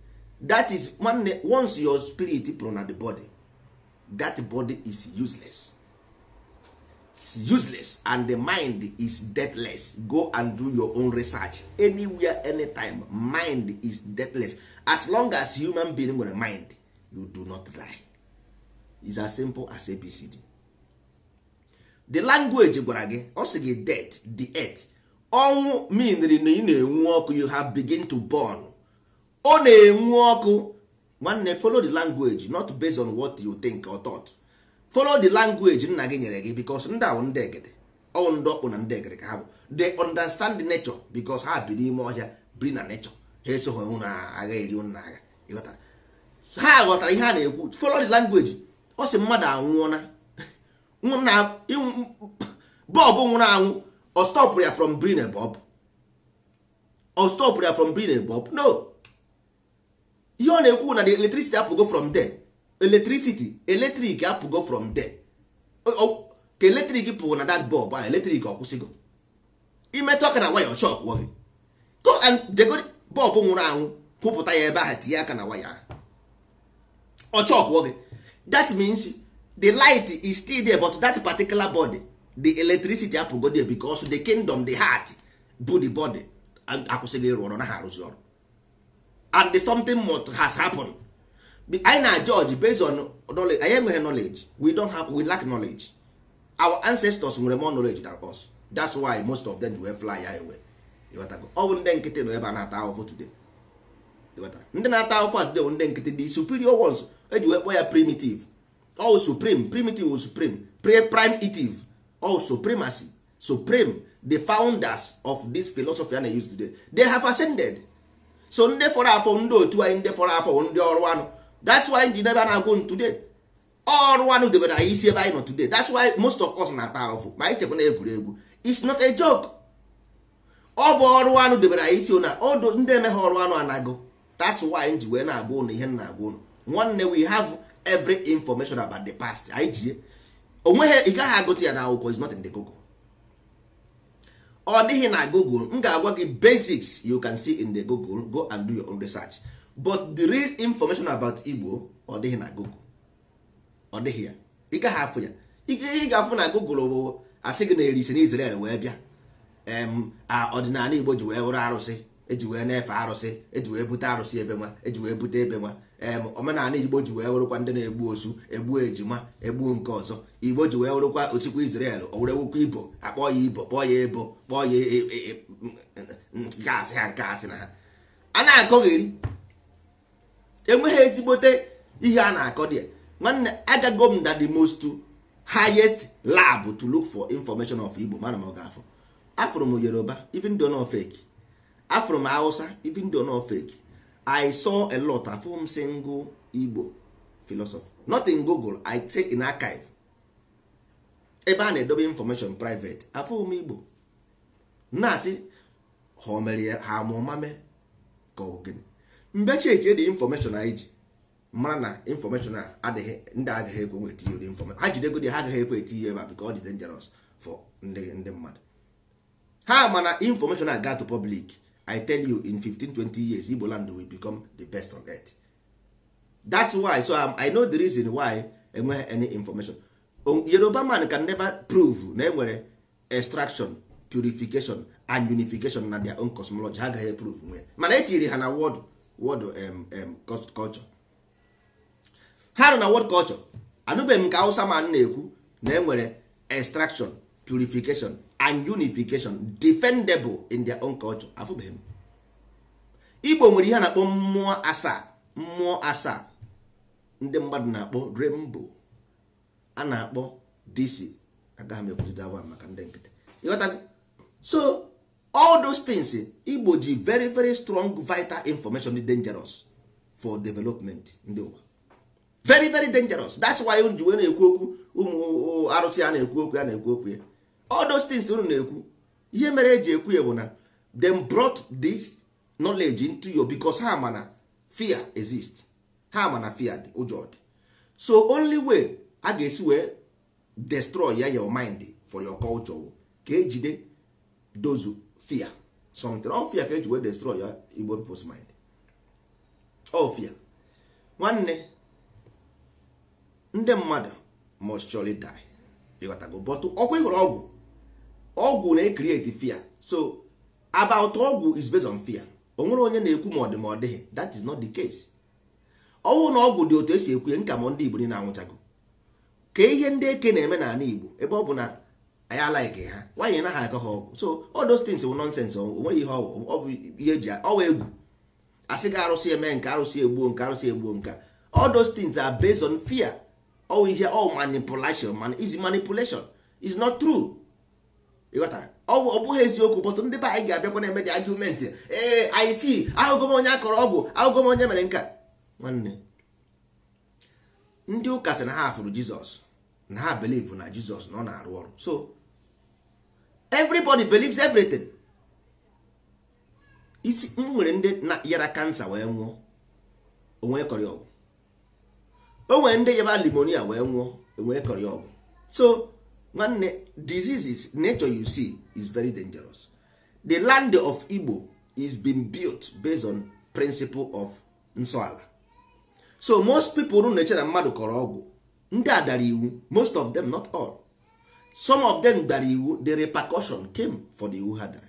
that is nwanne once your spirit pụrụ na the body that body is useless It's useless and the mind is deathless go and do your own research anywhere anytime mind is deathless as long as human being nwere mind you do not die is as simple as abcd the language gwara gị ọ sị death the earth ọnwụ miniri na ị na-enwu ọkụ you have begin to burn ọ na-enwu ọkụ nwanne follow the language not based on what you think or thought follow the language nna gị nyere gị because ndị ahụ ndị egede ọwụ ndị ọkpụ na ndị egede ka ha bụ they understand the nature because ha bi n'ime ọhịa biri na nature ha esogho hụ na agha eri na agha ịghọtara ha ghọtara ihe a na-ekwu follow the language ọ sị mmadụ anwụọ na bọlbụ nwụrụ anwụ ọ stọpụrụ ya from brin bob ọ stọpụrụ ya from brin bob no ihe ọ na-ekwu na the electricity apụgo from there electricity electric apụgo from there ka electric pụrụ na that bulb a electric ọ kwụsịgo imetụ aka na waya ọcha ọkwụọ gị go and dego bulb nwụrụ anwụ kwụpụta ya ebe ahụ tinye aka na waya ọcha ọkwụọ gị that means the light is still there but that particular body the electricity apụgodi because the kingdom the heart bụ the body akwụsịghị ịrụ ọrụ na ha arụzi ọrụ and something must has happened anyị na judge based on knowledge anyị enweghị knowledge we don't have we lack knowledge our ancestors nwere more knowledge than us that's why most of them were fly away ọ bụ ndị nkịtị nọ ebe a na-ata ahụhụ today ndị na-ata ahụhụ today bụ ndị nkịtị the superior ones eji wee kpọọ ya primitive all supreme primitive supreme pre primitive all supremacy supreme the founders of this philosophy a na-use today they have ascended so ndị fọrọ afọ ndị otu anyị ndị fọrọ afọ ndị ọrụ anụ that's why ji debe na-agụ today ọrụ anụ debere anyị isi ebe anyị nọ today that's why most of us na-ata ahụfụ ma anyị chekwa na egwuregwu it's not a joke ọ bụ ọrụ anụ debere anyị isi na ọdụ ndị eme ọrụ anụ anago that's why ji wee na-agwa ụnụ ihe na-agwa ụnụ nwanne we have every information about the past anyị jie onweghi ị gaghị agụta ya n'akwụkwọ is not in the google ọ dịghị na google m ga-agwa gị basics you can see in the google go and do your own research but the real information about igbo ọ dịghị na google ọ dịghị ya ị gaghị afụ ya ị ga-afụ na google bụ asị gị na eri ise na israel wee bịa ọdịnala igbo ji wee wụrụ arụsị eji wee na-efe arụsị eji wee bute arụsị ebe nwa eji wee bute ebe nwa omenala igbo ji wee wụrụkwa ndị na-egbu ozu egbu ejima egbu nke ọzọ igbo ji wee wụrụkwa osikwa Israel owurewukwa ibo akpọ ya ibo kpọọ ya ebo kpọọ ya e, e, e, nke asị ha nke asị na ha a na-akọgheri enweghị ezigbote ihe a na-akọ dị nwanne agago m na the most highest lab to look for information of igbo mana m ọ ga-afọ afụrụ m yoruba even though no fake afụrụ m hausa even though no fake i saw a lot afọ m single igbo philosophy not in google i check in archive ebe a na-edobe information private afọ m igbo na-asị ha omere ya ha amụmame ka ọ gịnị dị information anyị ji mara na information a adịghị ndị agaghị ekwe nweta ihe ụdị information ha jidego dị ha agaghị ekwe eti ihe ebe a bika ọ dị dangerous for ndị mmadụ ha mana information a ga to public i tell you in 15 20 years igbo land will become the best on earth that's why so i'm um, i know the reason why enweghị any information um, yoruba man can never prove na enwere extraction purification and unification na their own cosmology ha agaghị prove nwe mana etinyere ha na word word um, um, culture ha nọ na word culture anụbeghị m ka hausa man na-ekwu na enwere extraction purification and unification defendable in their own culture afụbeghị m igbo nwere ihe a na-akpọ mmụọ asaa mmụọ asaa ndị mmadụ na-akpọ rainbow a na-akpọ dc agaghị m ekwuzi awa maka ndị nkịtị so all those things igbo ji very very strong vital information dị dangerous for development ndị ụwa very very dangerous that's why ji wee na-ekwu okwu ụmụ arụsị a na-ekwu okwu ya na-ekwu okwu ya all those unu na-ekwu ihe mere eji ekwu ya bụ na them brought this knowledge into you because ha mana fear exist ha mana fear dị ụjọ dị so only way a ga-esi wee destroy ya your mind for your culture ka ejide dozu fear something all fear ka eji wee destroy ya igbo people's mind all fear nwanne ndị mmadụ must surely die bọtụ ọkwa ịhụrụ ọgwụ ọgwụ na-ekriti fear so about ọgwụ is based on fear o nwere onye na-ekwu ma ọ dị ma ọ dịghị that is not the case ọnwụ na ọgwụ dị otu esi ekwu nka ma ndị igbo niile anwụchago ka ihe ndị eke na-eme n'ala igbo ebe ọ bụ na anyị alaiki ha nwaanyị na ha akọ ha ọgwụ so all those things wụ nonsense o nweghị ihe ọ bụ ihe eji ọwa egwu asị gị arụsị eme nke arụsị egbuo nke arụsị egbuo nke all those things are based on fear ọ ihe ọ manipulation is manipulation is not true ịghọtara ọ bụghị eziokwu bọtụ ndị be anyị ga-abịakwa na-eme dị ee anyị si ahụgọ m onye akọrọ ọgwụ ahụgọ m onye mere nka nwanne ndị ụka sị na ha fụrụ jizọs na ha believe na jizọs na ọ na-arụ ọrụ so everybody believes everything isi m nwere ndị na yara kansa wee nwụọ onwe kọrị ọgwụ o nwere ndị yaba limonia wee nwụọ onwe kọrị ọgwụ so nwanne diseases nature you see is very dangerous the land of igbo is being built based on principle of nsọala so most people rụ na-eche na mmadụ kọrọ ọgwụ ndị a dara iwu most of them not all some of them dara iwu the repercussion came for the iwu ha dara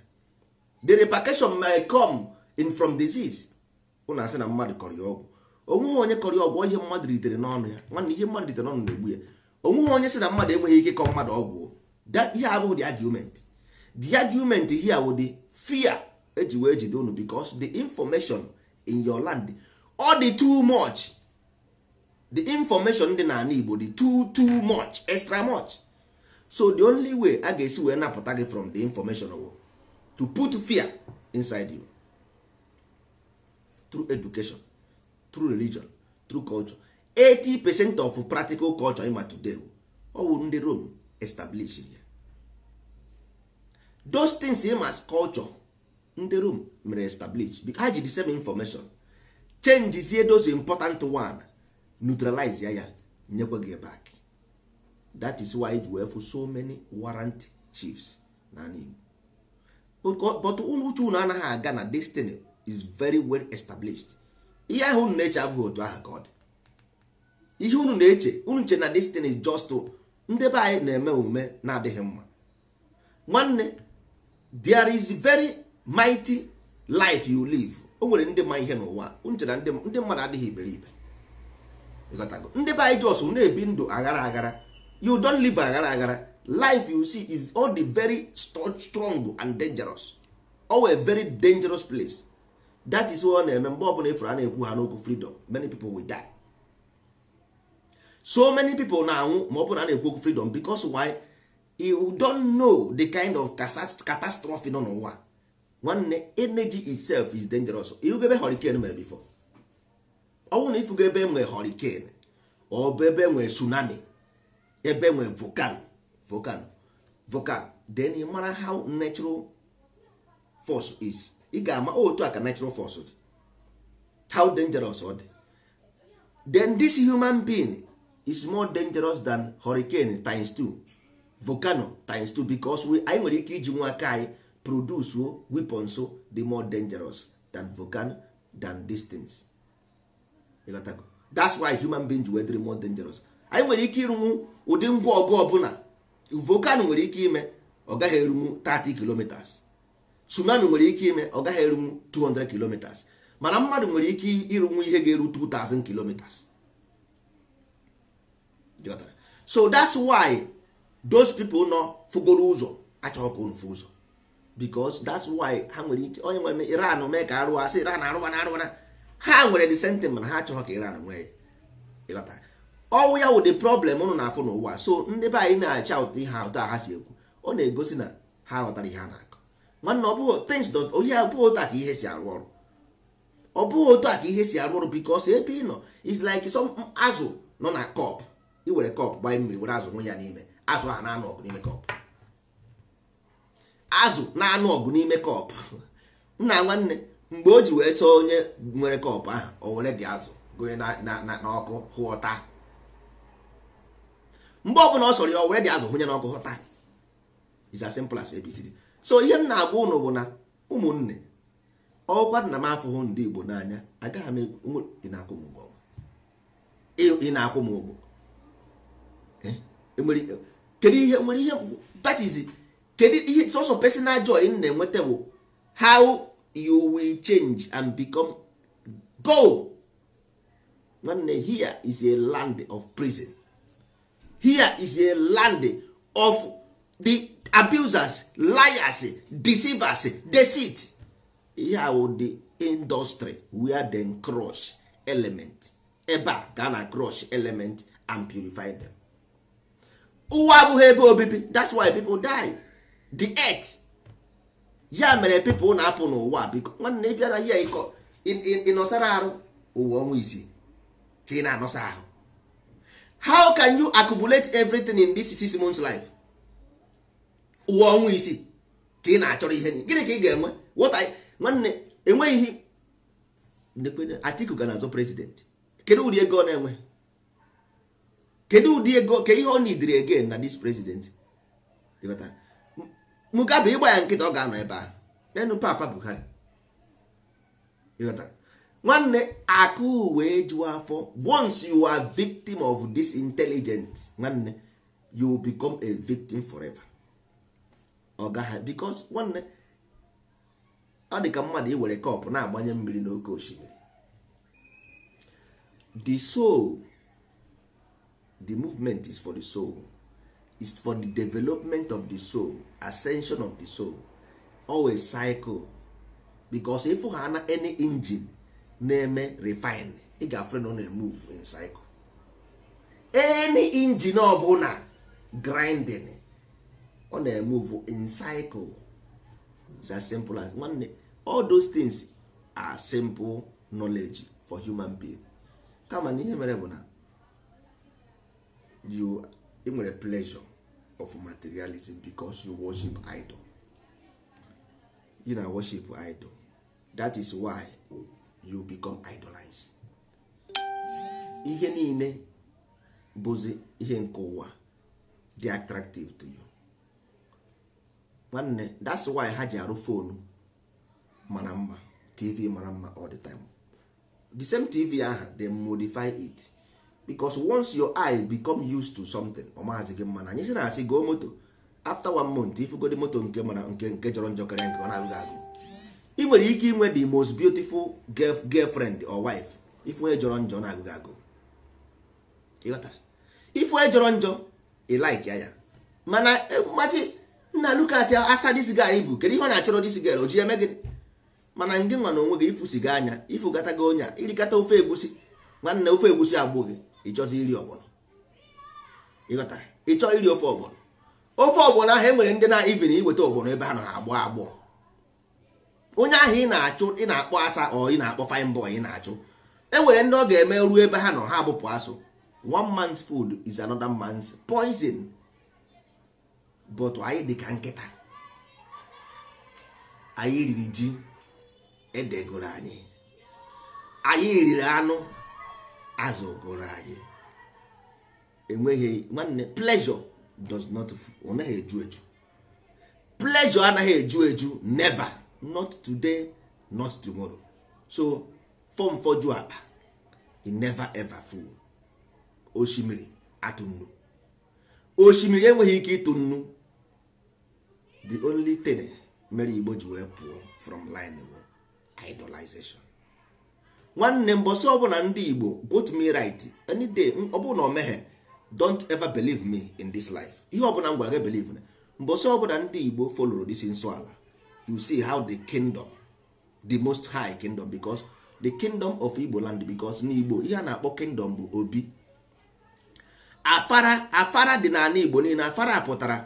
the repercussion may come in from disease ụna asị na mmadụ kọrọ ya ọgwụ onweghị onye kọrọ ya ọgwụ ihe mmadụ ritere n'ọnụ ya nwanne ihe mmadụ ritere n'ọnụ na-egbu ya onweghị onye si na mmadụ enweghị ike ịkọ mmadụ ọgwụ ihe abụghị the argument the argument here wụ the fear eji wee jide unu because the information in your land ọ dị too much the information dị n'ala Igbo dị too too much extra much so the only way a ga-esi wee napụta gị from the information o. to put fear inside you through education through religion through culture 80% of practical culture ma today ọwụ ndị Rome established ya those things ịma as culture ndị Rome mere establish because ha ji the same information ihe those important one neutralize ya ya nyekwa gị back that is why ji wee so many warrant chiefs na but uche unu anaghị aga na destiny is very well established ihe ahụ na abụghị otu ahụ ka ọ dị ihe unu na-eche unu che na destin just ndị be anyị na-eme omume na-adịghị mma nwanne there is very mighty life you live o nwere ndị ma ihe n'ụwa uche na ndị mmadụ adịghị iberibe ndị be anyị jos na-ebi ndụ aghara aghara you don't live aghara aghara life you see is all the very strong and dangerous all very dangerous place that is ọ na-eme mgbe ọbụla efere a na ha n'okwu freedom many people will die. so many people na-anwụ ma ọ bụrụ na na-ekwu okwu freedom because why you don't know the kind of catastrophe nọ n'ụwa nwanne energy itself is dangerous ihugo ebe hurricane mere before ọ bụrụ na ifugo ebe nwee hurricane ọ bụ ebe nwee tsunami ebe nwee volcano volcano volcano then ị mara how natural force is ị ga-ama oh, otu aka natural force how dangerous ọ dị then this human being is more dangerous than hurricane times 2 volcano times 2 because anyị nwere ike iji nwa aka anyị produce weapons dị more dangerous than volcano than these things that's why human beings were more dangerous anyị nwere ike ịrụnwu ụdị ngwa ọgụ ọbụla volcano nwere ike ime ọ gaghị erunwu 30 kilometers tsunami nwere ike ime ọ gaghị erunwu 200 kilometers mana mmadụ nwere ike ịrụnwu ihe ga-eru 2000 kilometers so that's why those people nọ fugoro ụzọ achọghị ka unu ụzọ because that's why ha nwere ike onye nwere iran mee ka arụwa sị iran arụwa na arụwa ha nwere the sentiment ha achọghị ka iran nwee ịghọtara ọnwụ ya wụ the problem ụnụ na-afụ n'ụwa so ndị be anyị na-acha ụtọ ihe ụtọ ha si ekwu ọ na-egosi na ha ghọtara ihe ha na-akọ nwanne ọ bụghị things ohi abụghị otu ka ihe si arụ ọrụ ọ bụghị otu ka ihe si arụ ọrụ because ebe ị nọ is like some azụ nọ na kọpụ Ị were kọpụ gbanye mmiri were azụ nwe ya n'ime azụ ha na-anụ ọgụ n'ime kọpụ azụ na-anụ ọgụ n'ime kọpụ nna nwanne mgbe o ji wee chọọ onye nwere kọpụ ahụ o were dị azụ gonye n'ọkụ hụọta mgbe ọbụla ọ sọrọ ya o were dị azụ hụnye n'ọkụ hụta is as simple as abcd so ihe m na-agwa ụnụ bụ na ụmụnne ọkwa nna m afụhụ ndị Igbo n'anya agaghị m ị na-akwụ m ụgwọ kedu ihe nwere ihe that is kedu ihe of personal joy m na-enweta bụ how you will change and become go nwanne here is a land of prison here is a land of the abusers liars deceivers deceit Ihe will the industry where dem crush element ebe a ga na crush element and purify them. ụwa abụghị ebe obibi that's why people die the earth ya mere people na-apụ n'ụwa biko nwanne ị bịara ya ịkọ ịnọsara arụ ụwa ọnwa isii ka ị na-anọsa ahụ how can you accumulate everything in this six months life ụwa ọnwa isii ka ị na-achọrọ ihe gịnị ka ị ga-enwe nwanne enweghị Atiku ga na-azọ kedu ụdị ego ọ na-enwe kedu ụdị ego ka ihe ọ nidiri again na dis president Mugabe ịgba ya nkịta ọ ga-anọ ebe a, enu papa Buhari nwanne akụ wee juwa afọ once you are victim of this intelligence nwanne you become a victim forever ọ gaghị nwanne ọ dị ka mmadụ iwere kọpụ na-agbanye mmiri n'oke osimiri the soul the movement is for the soul is for the development of the soul ascension of the soul always cycle bicos ịfụ ha na any engine na-eme refine ị ga-afre na ọ na-emove in cycle any engine ọbụla grinding ọ na-emove in cycle is as simple as nwanne all those things are simple knowledge for human being kama na ihe mere bụ na you ị nwere pleasure of materialism because you worship idol you na worship idol that is why you become idolized ihe niile bụzi ihe nke ụwa dị attractive to you nwanne that's why ha ji arụ fonu mara mma tv mara mma all the time the same tv aha they modify it because once your eye become used to something ọ maazị gị mma na anyị si na asị goo moto after one month ifugodi moto nke mana nke nke jọrọ njọ karịa nke ọ na-agụghị agụ ị nwere ike inwe the most beautiful girlfriend or wife ifunye jọrọ njọ na-agụghị agụ ifunye jọrọ njọ ị like ya ya mana mmachi e, nna lukat asa dis guy bụ kedu ihe ọ na-achọrọ dis girl o ji eme gị mana ngị nwa na onwe gị ifusi gị anya ifugata gị onya irikata ofe egusi nwanne ofe egusi agbụ gị ịchọzi iri ọgbọnọ ịghọta ịchọ iri ofe ọgbọnọ ofe ọgbọnọ ahụ enwere ndị na ivin iweta ọgbọnọ ebe ha nọ ha agbọ agbọ onye ahụ ị na-achụ ị na-akpọ asa ọ ị na-akpọ fine ị na-achụ enwere ndị ọ ga-eme ruo ebe ha nọ ha abụpụ asụ one man's food is another man's poison but anyị dị ka nkịta anyị riri ji edegoro anyị anyị riri anụ azụgoro anyị enweghị nwanne pleasure does not eju eju pleasure anaghị eju eju never not today not tomorrow so fọm fọjụ akpa he never ever full osimiri atụ nnu osimiri enweghị ike ịtụ nnu the only thing mere igbo ji wee pụọ from line bụ idolization nwanne mbọsị ọbụla ndị igbo got me right any day ọ o meghe don't ever believe me in this life ihe ọbụla m gwara gị believe na mbọsị ọbụla ndị igbo follow this nso ala you see how the kingdom the most high kingdom because the kingdom of igbo land because n'igbo ihe a na-akpọ kingdom bụ obi afara afara dị n'ala igbo niile afara pụtara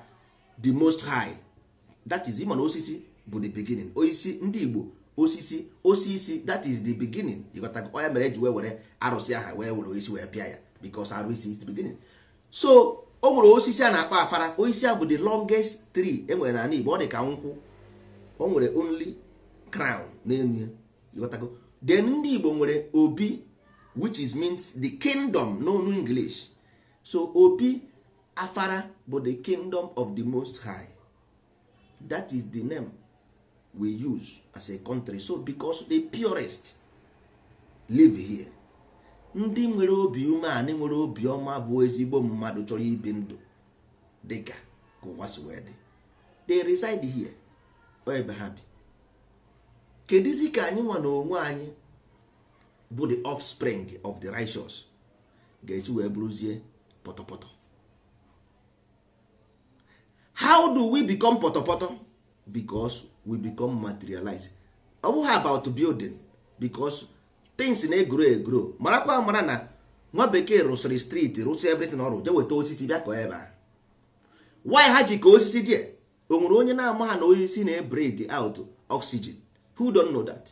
the most high that is ịma osisi bụ the beginning osisi ndị igbo osisi osisi that is the beginning ịghọtago onye oh, mere eji wee were arụsị aha wee were isi wee pịa ya because arụsị is the beginning so o nwere osisi a na-akpọ afara osisi a bụ the longest tree e nwere na Igbo ọ dị ka nkwụ o nwere only crown n'elu ya ịghọtago then ndị Igbo nwere obi which is means the kingdom n'onu English so obi afara bụ the kingdom of the most high that is the name we use as a country so because the purest live here ndị nwere obi umeanị nwere obi ọma bụ ezigbo mmadụ chọrọ ibi ndụ dịka ka ụwa si dị they reside here ebe ha bi kedụzi ka anyị nwa na onwe anyị bụ the offspring of the righteous ga-esi wee bụrụzie pọtọpọtọ how do we become pọtọpọtọ because we become materialized ọ bụghị about building because things na-egro egro marakwa mara na nwa bekee rụsịrị street rụsị everything ọrụ deweta weta osisi bịa kọọ ebe a why ha ji ka osisi die o nwere onye na-ama ha na osisi na-ebred out oxygen who don't know that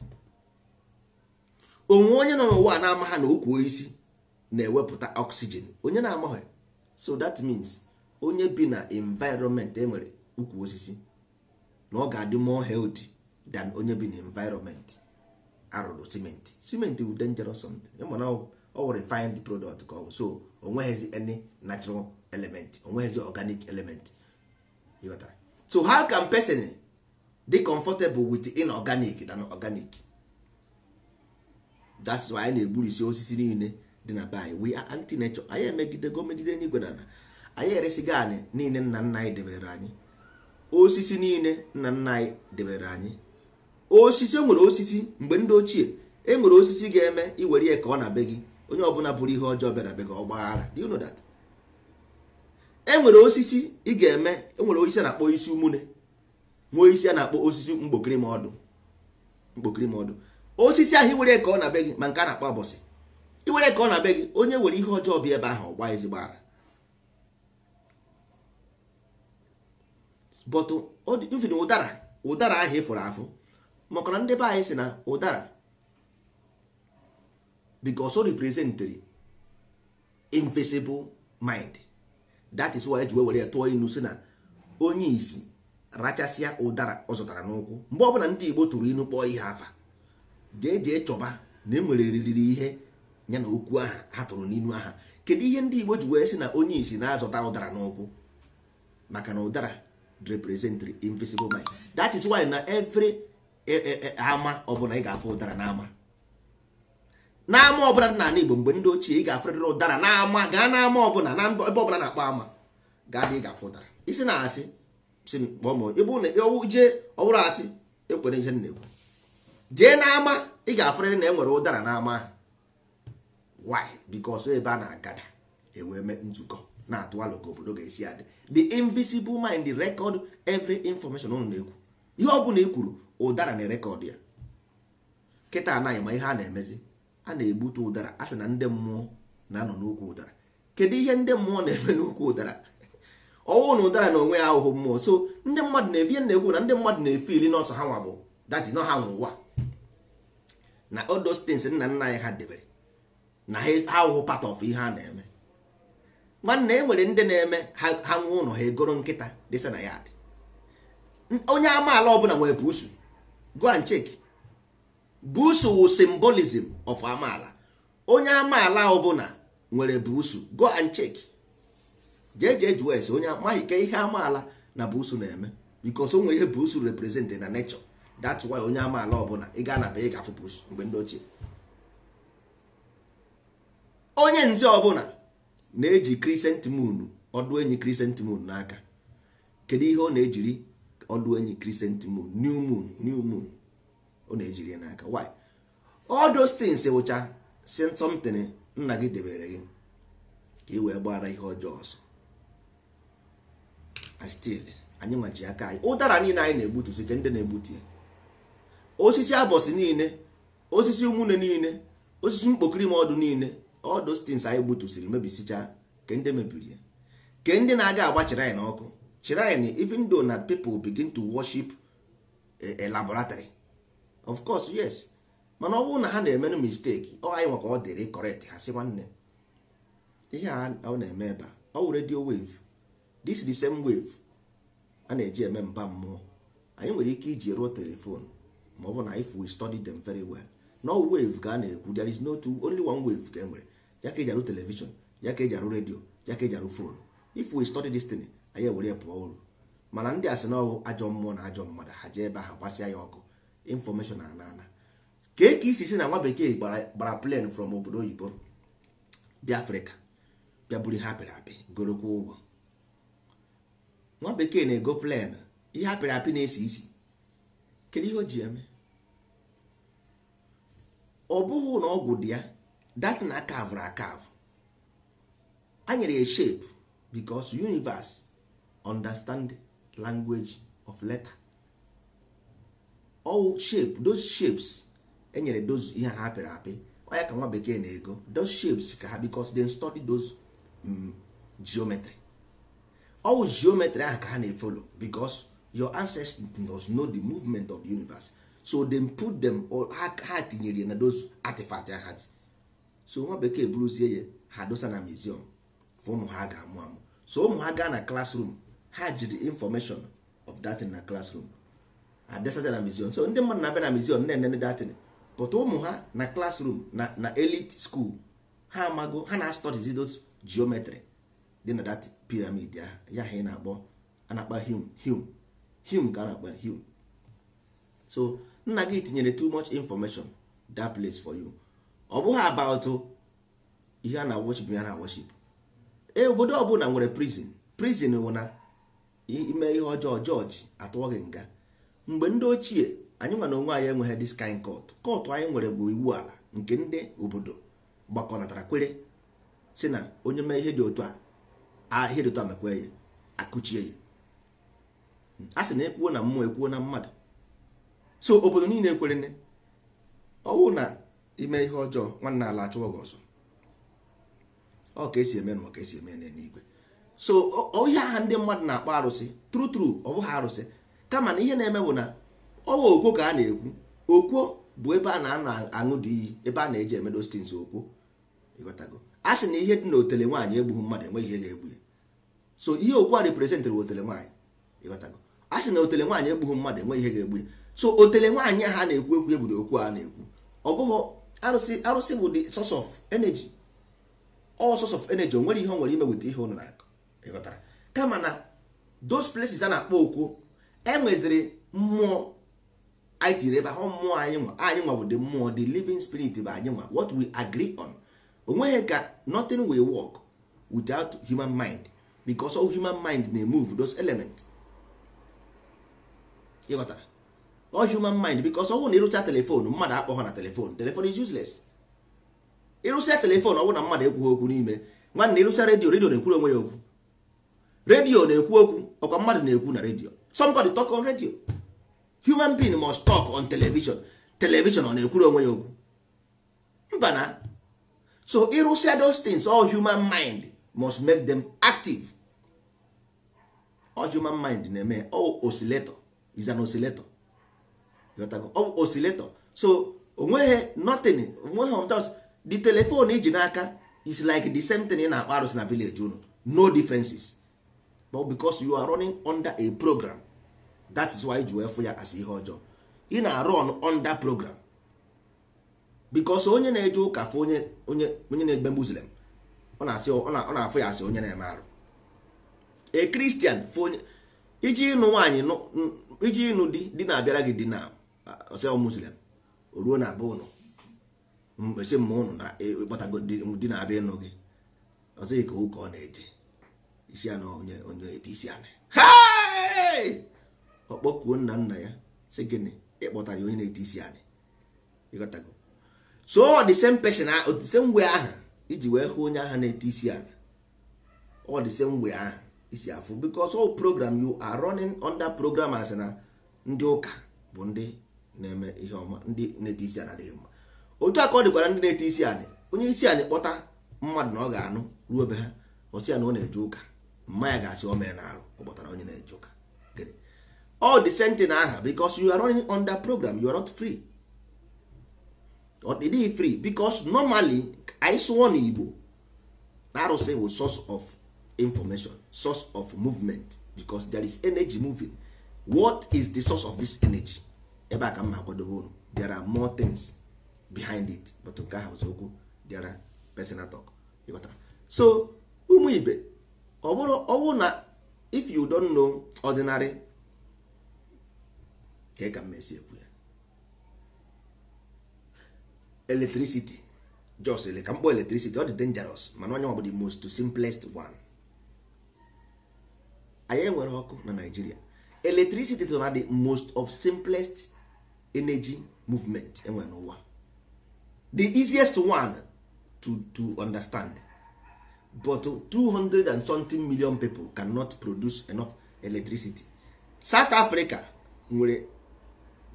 onwe onye nọ n'ụwa na-ama ha na okwu osisi na-ewepụta oxygen onye na-amaghị so that means onye bi na environment enwere ukwu osisi na ọ ga-adị more healthy than onye bi n'environment arụrụ simenti simenti bụ dangerous something mana ọ wụ refined product ka ọ so o nweghịzi any natural element o nweghịzi organic element ịghọtara so how can person dị comfortable with inorganic than organic that's why anyị na-egburisi osisi niile dị na be anyị we are anti nature anyị emegidego megide n'igwe na anyị eresigo anyị niile nna nna anyị debere anyị osisi niile nna nna anyị debere anyị osisi enwere osisi mgbe ndị ochie enwere osisi ga-eme iwere ya ka ọ na be gị onye ọbụla bụrụ ihe ọjọọ bịara be gị ọgbaghara do you know that enwere osisi ị ga-eme enwere osisi a na-akpọ isi umune nwee isi a na-akpọ osisi mkpokiri ma ọdụ mkpokiri osisi ahụ iwere ka ọ na be gị ma nke a na-akpọ abọsị iwere ka ọ na be gị onye nwere ihe ọjọọ bịa ebe ahụ ọgba ezigbo ara but even ụdara ụdara ahụ ịfụrụ e afụ maka ndị be anyị si na ụdara because o represented invisible mind that is why eji were ya tụọ inu si na onye isi rachasịa ụdara ọ zụtara n'ụkwụ mgbe ọbụla ndị Igbo tụrụ inu kpọọ ihe afa jee jee chọba na enwere riri ihe ya na okwu aha ha tụrụ n'inu aha kedu ihe ndị Igbo ji wee sị na onye isi na-azụta ụdara n'ụkwụ maka na ụdara represent the invisible mind that is why na every eh, eh, eh, ama ọbụla ị ga-afụ ụdara n'ama n'ama ọbụla dị n'ala Igbo mgbe ndị ochie ị ga-afụrịrị ụdara n'ama gaa n'ama ọbụla na ebe ọbụla na-akpọ ama gaa dị ị ga-afụ ụdara isi na asị si kpọọ mụ ebe ụlọ ewu jee ọ bụrụ asị ekwere ihe na-ekwu jee n'ama ị ga-afụrịrị na enwere ụdara n'ama ahụ why because ebe a na-agada ewee mee nzukọ na-atụ ka obodo ga-esi adị the invisible mind record every information unu na-ekwu ihe ọbụla ị e kwuru ụdara na rekọd ya kịta anaghị ma ihe a na-emezi a na-egbute ụdara a sị na ndị mmụọ na-anọ n'ukwu ụdara kedu ihe ndị mmụọ na-eme n'ukwu ụdara ọwụ na ụdara na onwe ya ahụhụ mmụọ so ndị mmadụ na-ebi na-ekwu na ndị mmadụ na-efe ili n'ọsọ ha nwabụ bụ that ha n'ụwa. na odo stins nna nna anyị ha debere na ha ahụhụ part of ihe a na-eme nwanne e nwere ndị na-eme ha nwe ụlọ ha egoro nkịta dịsa na ya dị onye amaala ọbụla nwere buusu go and check buusu wu symbolism of amaala onye amaala ọbụla nwere buusu go and check onye amaghị ka ihe amaala na buusu na-eme bikos onwe ihe buusu represent na n'echọ. that's why onye amaala ọbụla ị ga anaba ị ga buusu mgbe ndị ochie onye nze ọbụla na-eji crescent moon ọdụ enyi crescent moon n'aka kedu ihe ọ na-ejiri ọdụ enyi crescent moon new moon new moon ọ na-ejiri n'aka why all those things wụcha sent something nna gị debere gị ka ị wee gbara ihe ọjọọ ọsọ still anyị nwaji aka anyị ụdara niile anyị na-egbutusi ka ndị na-egbutu ya osisi abọsị niile osisi umune niile osisi mkpokiri ma ọdụ niile all those things anyị gbutusiri mebisicha ke ndị mebiri ya ke ndị na-aga agba chịrị na ọkụ chịrị even though na people begin to worship eh, a laboratory of course yes mana ọ bụrụ na ha na-emenụ mistake ọ anyị nwaka ọ dịrị correct ha si nwanne ihe a ọ na-eme ebe a ọ wụ radio wave this the same wave a na-eji eme mba mmụọ anyị nwere ike iji ruo telefon ma ọ bụ na if we study them very well no wave ka a na-ekwu there is no two only one wave ka e nwere ya ka eji arụ telivishọn ya ka eji redio ya ka eji arụ fon if we study this thing anyị ewere ya pụọ uru mana ndị asị na ọwụ ajọ mmụọ na ajọ mmadụ ha jee ebe ahụ gbasịa ya ọkụ infọmeshọn ana ana ka e ka isi si na nwa bekee gbara plen from obodo oyibo bịa afrịka bịa buru ihe apịrị apị gorokwa ụgwọ nwa bekee na-ego plen ihe apịrị apị na-esi isi kedu ihe o ji eme ọ bụghị na ọgwụ dị ya that na akavụrụ na a anyere ya shape because universe understand language of letter all shape those shapes enyere those ihe ha apịrị apị onye ka nwa bekee na-ego those shapes ka ha because they study those um, geometry all geometry ahụ ka ha na-efolo because your ancestors know the movement of the universe so dem put them heart ha tinyere na those artifact ha ji so nwa bekee buruzie ya ha dosa na museum for ụmụ ha ga-amụ amụ so ụmụ ha gaa na klasrum ha ji the information of datin na classroom adesacha na museum so ndị mmadụ na-abịa na museum na-enene datin pụta ụmụ ha na klasrum na na elit school ha amago ha na-astudizi those geometry dị na dat pyramid ya ya ha na-akpọ anakpa hum hum hum ka na-akpa hum so nna gị tinyere too much information that place for you ọ bụghị about ihe a na-awochip ya na awochip ee obodo ọbụla nwere prizin prizin wụ na ime ihe ọjọọ jọji atụọ gị nga mgbe ndị ochie anyị nwa onwe anyị enweghị this kind court anyị nwere bụ iwu ala nke ndị obodo gbakọnatara kwere si na onye mee ihe dị otu a ihe dị otu a mekwe ya akụchie ya hmm. a sị na ekwuo na mmụọ ekwuo na mmadụ so obodo niile ekwere ọwụ na ime ihe ọjọọ nwanne ala achụwa gị ọzọ ọ ka esi eme na ọ ka esi eme n'eluigwe so ihe aha ndị mmadụ na-akpọ arụsị tru tru ọ bụghị arụsị kama na ihe na-eme bụ na ọwa okwo ka a na-ekwu okwo bụ ebe a na-aṅụ dị iyi ebe a na-eji emedo stins okwo ịghọtago a sị na ihe dị na otele nwaanyị egbughị mmadụ enweghị ihe ga-egbu ya so ihe okwu a reprezentịrị otele nwaanyị ịghọtago a sị na otele nwaanyị egbughị mmadụ enweghị ihe ga-egbu ya so otele nwaanyị ha na-ekwu ekwu ebudo okwu a na-ekwu ọ bụghị arụsị arụsị bụ the source of energy all source of energy o nwere ihe o nwere ime weta ihe unu na-akụ ịghọtara kama na those places a na-akpọ okwu enweziri mmụọ anyị tinyere ebe ahụ mmụọ anyị nwa anyị nwa bụ the mmụọ the living spirit bụ anyị nwa what we agree on onweghị ka nothing will work without human mind because all human mind na-emove those elements ịghọtara ọ human mind because ọnwụ na ịrụcha telefon mmadụ akpọghọ na telefon telefon is useless ịrụcha telefon ọnwụ na mmadụ ekwughị okwu n'ime nwanne ịrụcha redio redio na-ekwuru onwe ya okwu redio na-ekwu okwu ọkwa mmadụ na-ekwu na redio somebody talk on radio human being must talk on television television ọ na-ekwuru onwe ya okwu mba na so ịrụsịa those things all human mind must make them active all human mind na-eme all oscillator is an oscillator ọ oh, osileto so onweghị nothing onweghị just the telephone iji e n'aka is like the same thing na akpa arụsị na village unu no differences but because you are running under a program that is why ji wee ya as ihe ọjọọ ị na-arun under program because onye na-eje ụka fụ onye onye na-egbe muslim ọ na-afụ ya asị onye na-eme arụ a christian fụ onye iji ịnụ nwaanyị iji ịnụ di di na-abịara gị di na Ah, ọsịa muslim ruo na abụ ụnụ mgbesi mma ụnụ na ịkpọtago e, di na abịa ịnụ gị ọsịghị ka ụka ọ na-eje isi ya na onye onye eti isi ana ọ kpọkuo nna nna ya sị gịnị ịkpọtara ya onye na-eti isi ana ịghọtago so the same person the same way ahụ iji wee hụ onye ahụ na-eti isi ana ọ the same way ahụ isi afụ because all program you are running under program as na ndị ụka bụ ndị na-eme ihe ọma ndị na-eti isi adịghị mma otu a ka ọ dịkwara ndị na-eti isi anị onye isi anị kpọta mmadụ na ọ ga-anụ ruo ebe ha ọsị ya na ọ na-eje ụka mma ya ga-asị o mee na arụ ọ kpọtara onye na-eje ụka all the sentin aha bicos you are running program you are not free ọ dịghị free bicos normally anyị na igbo na arụsị bụ source of information source of movement because there is energy moving what is the source of this energy ebe a ka mma akwadobe unu there are more things behind it but nke ahụ ụzọ okwu there tok personal so ụmụ ibe ọ bụrụ ọwụ na if you don know ordinary ka ị ka mmezi ekwu ya electricity jos ele ka mkpọ electricity ọ dị dangerous mana onye ọbụla the most simplest one anyị enwere ọkụ na Nigeria electricity to na the most of simplest energy movement enwe n'ụwa the easiest one to, to understand but 200 and something million people cannot produce enough electricity south africa nwere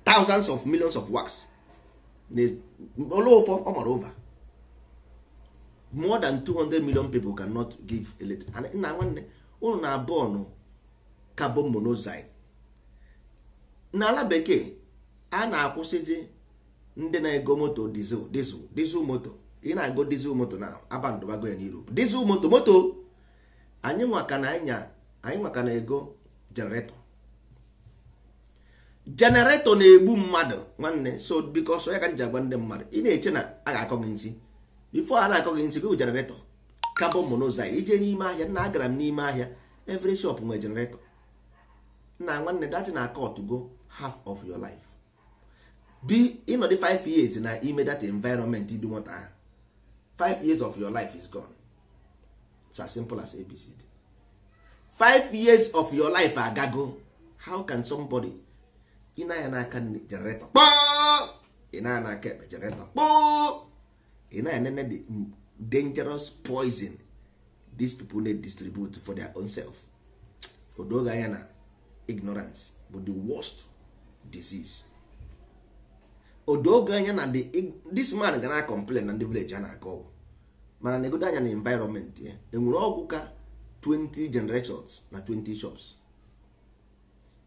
thousands of millions of works olofo ọ mara over more than 200 million people cannot give electricity nna nwanne unu na abụọ ọnụ carbon monoxide n'ala bekee a na-akwụsịzi ndị na-ego moto dizel dizel dizel moto ị na-ego dizel moto na abandụbago ya n'Europe dizel moto moto anyị nwaka na anya anyị nwaka na ego jeneretọ jeneretọ na-egbu mmadụ nwanne so biko so ya ka nji agwa ndị mmadụ ị na-eche na a ga-akọ gị nsị bifo a na-akọ gị nsị gị jeneretọ kabọn monoxide ije n'ime ahịa nna agara m n'ime ahịa every shop nwere jeneretọ na nwanne dati na akọtụgo half of your life bi ịnọdụ 5 years na ime that environment dị nwata ahụ 5 years of your life is gone it's as simple as abcd 5 years of your life agago how can somebody ịnaya n'aka generator kpọọ ịnaya n'aka ekpe generator kpọọ ịnaya nene the dangerous poison these people na distribute for their own self odoge anya na ignorance bụ the worst disease odoge anya na this man gara complain na ndị village a na-akọ ọgwụ mana na-egodo anya na environment ya enwere ọgwụ ka 20 generations na 20 shops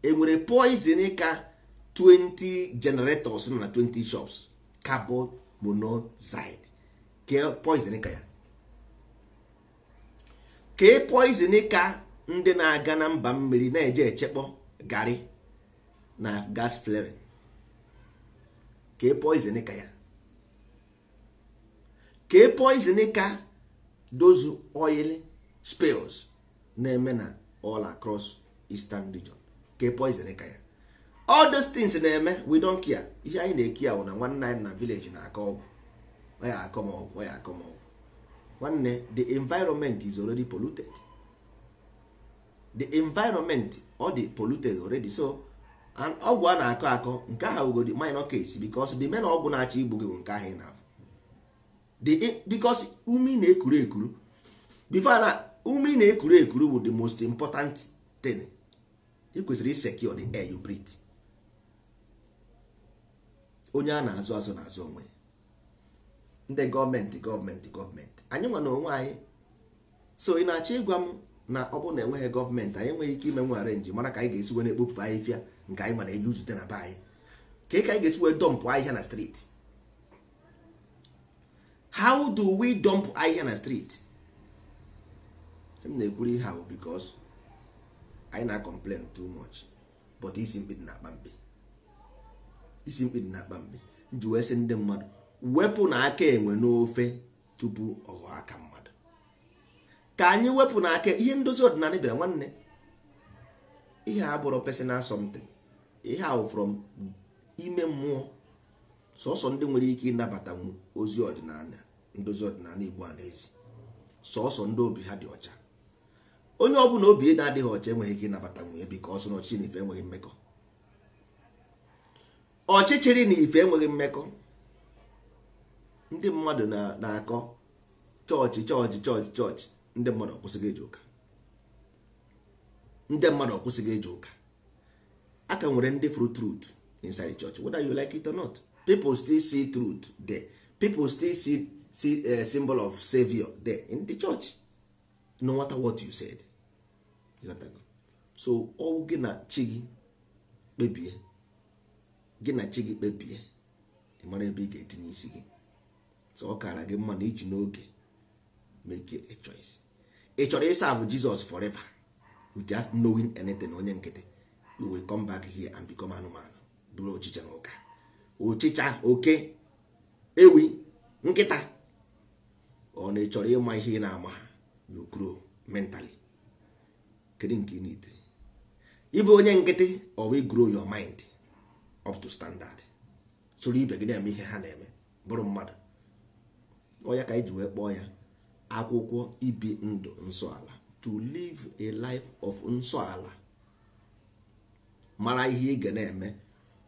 enwere poison ka 20 generators na 20 shops carbon monoxide ka e poison ka ya ka e poison ka ndị na-aga na mba mmiri na-eje echekpọ gari na gas flaring ka ị e ka ya e ka ị ka dozu oil spills na-eme na all across eastern region ka ị e ka ya all those things na-eme we don care ihe anyị na-eki ahụ na nwanne anyị na village na-akọ ọgwụ ya akọ m ọgwụ ya akọ m ọgwụ nwanne the environment is already polluted the environment ọ dị polluted already so and ọgwụ a na-akọ akọ nke ahụ ugodi minor case because the main ọgwụ na-achọ igbu gị bụ nke ahụ ị na-afụ because ume na-ekuru ekuru before na ume na-ekuru ekuru bụ the most important thing ị kwesịrị secure the air you breathe onye a na-azụ azụ na-azụ onwe ndị gọọmenti gọọmenti gọọmenti anyị nwe na onwe anyị so ị na-achọ ịgwa m na ọ bụrụ na enweghị gọọmenti anyị enweghị ike ime nwe arenji mara ka anyị ga-esi were ekpofu ahịfịa nke anyị mana eji uzute na be anyị ka ka anyị ga-esi wee dọmpụ ahịhịa na street how do we dump ahịhịa na street m na-ekwuru ihe ahụ because anyị na-complain too much but isi mkpi dị na-akpa mkpi isi mkpi dị na-akpa mkpi nji wee ndị mmadụ wepụ na aka enwe n'ofe tupu ọghọ aka mmadụ ka anyị wepụ na aka ihe ndozi ọdịnala bịara nwanne ihe a bụrụ personal something ihe ahụ from ime mmụọ sọsọ ndị nwere ike ịnabata ozi ọdịnala ndozi ọdịnala igbo a n'ezi sọsọ ndị obi ha dị ọcha onye ọ bụla obi na-adịghị ọcha enweghị ike ịnabata nwunye biko ọsọ na ọchịchị na ife enweghị mmekọ ọchịchịrị na ife enweghị mmekọ ndị mmadụ na-akọ chọọchị chọọchị chọọchị chọọchị ndị mmadụ ọkwụsịghị eji ụka ndị mmadụ ọkwụsịghị eji ụka a ka nwere ndị fru truth inside the church whether you like it or not people still see truth there people still see, see a eh, symbol of savior there in the church no matter what you said so ọ gị na chi gị kpebie gị na chi gị kpebie ị mara ebe ị ga-etinye isi gị so ọ kara gị mma na iji n'oge make a choice ị chọrọ ịsa bụ Jizọs forever without knowing anything onye nkịtị we come back here and become anụmanụ bụrụ ochicha na ụka ochicha oke ewi nkịta ọ na echọrọ ịma ihe ị na-ama you grow mentally kedu nke ị need ịbụ onye nkịtị or grow your mind up to standard soro ibe gị na-eme ihe ha na-eme bụrụ mmadụ ọya ka anyị wee kpọọ ya akwụkwọ ibi ndụ nsọala to live a life of ala. mara ihe ị ga na-eme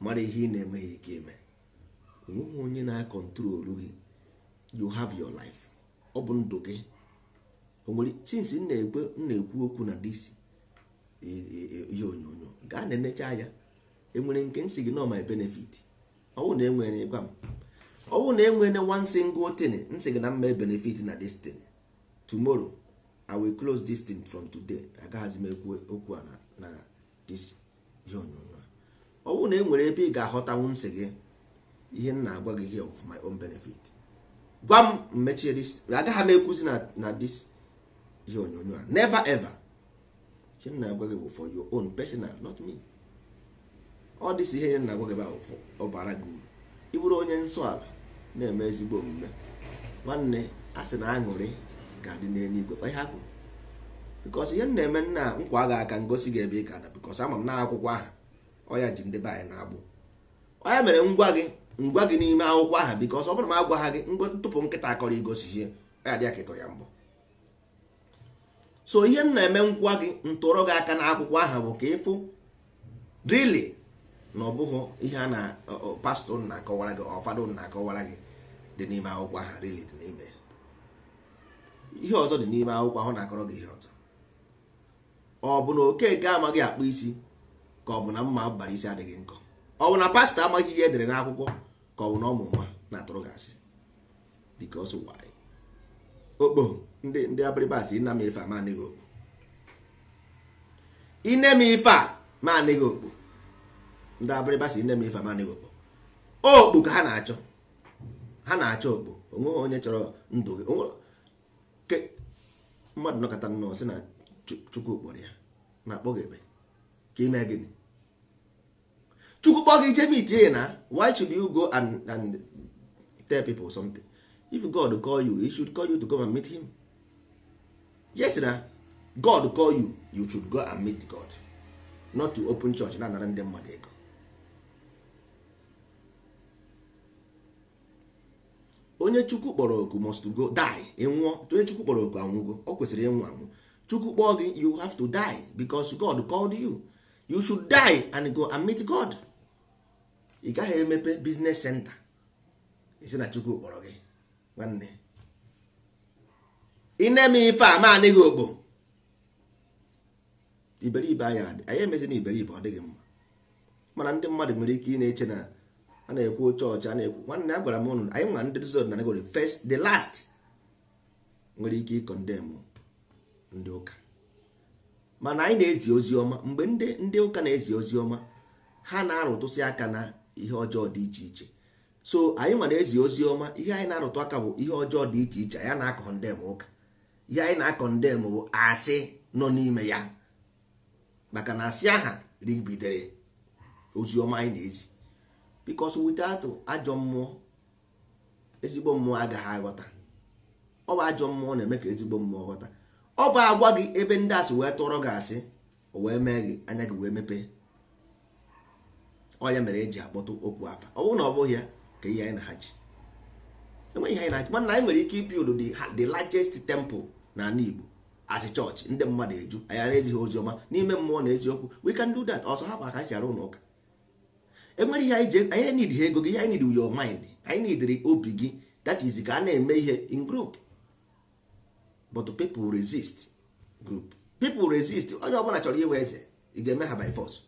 mara ihe ị na-enweghị ike eme nweghị onye na-akọntrolu gị you have your life ọ bụ ndụ gị onwere since m na-ekwu okwu na dc e, e, e, ihe onyonyo gaa na-enecha ya enwere nke nsị gị nọ my benefit ọwụ na enwere gwa m ọwụ na enwere one single thing nsị gị na mma benefit na dis thing tomorrow i will close this thing from today agaghazi m ekwu okwu a na dis ihe onyonyo ọ bụrụ na e nwere ebe ị ga-aghọtanwu nsị gị ihe m na-agwa gị here for my own benefit gwa m mmechie dis agaghị m ekwuzi na dis ihe onyonyo a never ever ihe m na-agwa gị bụ for your own personal not me ọ dịsi ihe na-agwa gị bụ for ọbara gị uru ị onye nsọ ala na-eme ezigbo omume nwanne a na aṅụrị ga-adị n'eluigwe ọ ya kwuru bikos ihe m na-eme nna nkwa agha aka ngosi gị ebe ị ka na bikos ama m na akwụkwọ aha ọya ji ndị be anyị na-agbụ ọya mere ngwa gị ngwa gị n'ime akwụkwọ aha bikos ọ bụrụ ma agwa ha gị tupu nkịta akọrọ igosi ihe ya dị akịtọ ya mbọ so ihe m na-eme nkwa gị ntụrụ gị aka na akwụkwọ aha bụ ka ịfụ rili na ọ bụghị ihe a na pastọ na akọwara gị ọfadụ na akọwara gị dị n'ime akwụkwọ aha rili dị n'ime ihe ọzọ dị n'ime akwụkwọ ahụ na-akọrọ gị ihe ọzọ ọ bụ na okeke amaghị akpụ isi ka ọ bụ na mma abalị isi adịghị nkọ ọ bụ na pastọ amaghị ihe edere n'akwụkwọ ka ọ bụ na ọmụ nwa na-atụrụ gị asị because why okpo ndị ndị abịrịba asị nna m ife a manịghị okpo ine m ife a manịghị okpo ndị abịrịba sị nne m ife a manịghị okpo okpo ka ha na-achọ ha na-achọ okpo onweghị onye chọrọ ndụ gị mmadụ nọkọta nnọọ sị na chukwu kpọrọ ya ma kpọ gị ebe ka ime gịnị chukwu kpọọ gị jeme itie na why should you go and, and tell people something if god call you he should call you to go and meet him yes na god call you you should go and meet god not to open church na anara ndị mmadụ ego onye chukwu kpọrọ oku must go die ịnwụọ onye chukwu kpọrọ oku anwụgo o kwesịrị ịnwụ anwụ chukwu kpọọ gị you have to die because god called you you should die and go and meet god ị gaghị emepe business center isi na chukwu kpọrọ gị nwanne ine m ife a maanị gị okpo iberibe anyị anyị emezi na iberibe ọ dịghị mma mana ndị mmadụ nwere ike ị na-eche na a na-ekwu chọọchị a na-ekwu nwanne a gwara m ụnụ anyị nwa ndị rizod na negori first the last nwere ike ịkọndemụ ndị ụka mana anyị na-ezi ozi ọma mgbe ndị ndị ụka na-ezi ozi ọma ha na-arụtụsị aka na ihe ọjọọ dị iche iche so anyị ma na-ezi ozi ọma ihe anyị na-arụtụ aka bụ ihe ọjọọ dị iche iche anyị na-akọ ndem ụka ihe anyị na-akọ ndem bụ asị nọ n'ime ya maka na asị aha ribidere ozi ọma anyị na-ezi bikos without ajọ mmụọ ezigbo mmụọ agaghị aghọta ọ bụ ajọ mmụọ na-eme ka ezigbo mmụọ ghọta ọ bụ agwa gị ebe ndị asị wee tụrọ gị asị o wee mee gị anya gị wee mepee ọ ya mere eji akpọtụ okwu afa ọ bụrụ na ọ bụghị ya ka ihe anyị na achị ji enweghị ihe anyị na-achị mana anyị nwere ike ipi odo the largest temple na ala Igbo asị chọọchị ndị mmadụ eju anyị ara ezighị ozi ọma n'ime mmụọ na eziokwu we can do that ọsọ ha hapụ aka anyị si arụ ụlọ ụka enwere ihe anyị ji anyị need ha ego gị ihe anyị need your mind anyị need obi gị that is ka a na-eme ihe in group but people resist group people resist onye ọbụla chọrọ iwe eze ị ga-eme ha by force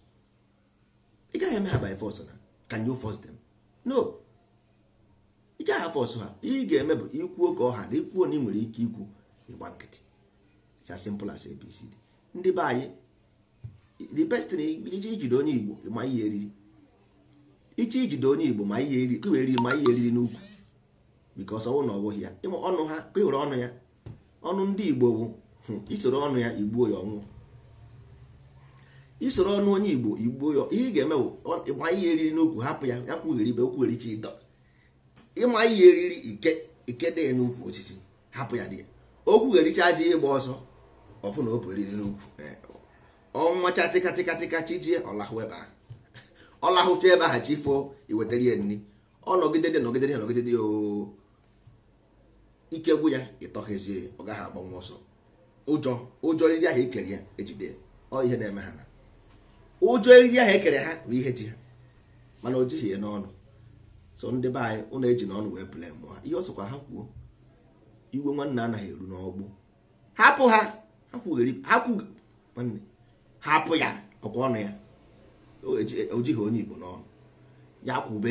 ị gaghị eme ha by force na can you force them no ị gaghị force ha ị ga-eme bụ ikwuo ka ọha ha ikwuo na ị nwere ike ikwu ịgba nkịtị it's as simple as abcd ndị be anyị the best iji ijide onye igbo ma ihe eriri iche ijide onye igbo ma ihe eriri ma ihe eriri n'ukwu because ọnwụ na ọ bụghị ya ịma ọnụ ha ịhụrụ e ọnụ ya ọnụ ndị igbo bụ hmm, isoro ọnụ ya igbuo ya ọnwụ isoro ọnụ onye igbo igbuo ya ihe ị ga-eme bụ ịgba ihe eriri n'ukwu hapụ ya ya kwugheri ibe okwugherichi ịdọ ịma ihe eriri ike ikede ya n'ukwu osisi hapụ ya dị ya Okwu okwughericha aja ịgba ọsọ ọfụ na opu eriri n'ukwu e, ọnwacha tịkatịkatịka chijie ọlahụ ebe ahụ ọlahụcha ebe ahụ chifo iwetara ya nri ọ nọgide dị nọgide dị nọgide dị ooo ike gwụ ya ịtọghezie ọ gaghị agbanwe ọsọ ụjọ ụjọ eriri ahụ ekere ya ejide ọ ihe na-eme ha na ụjọ eriri ahụ ekere ha bụ ihe ji ha mana o jighị ya n'ọnụ so ndị be anyị ụlọ eji n'ọnụ wee pụle mụọ ha ihe ọsọkwa ha kwuo iwe nwanne anaghị eru n'ọgbụ hapụ ha hapụ ya ọkwa ọnụ ya o jighị onye Igbo n'ọnụ ya kwube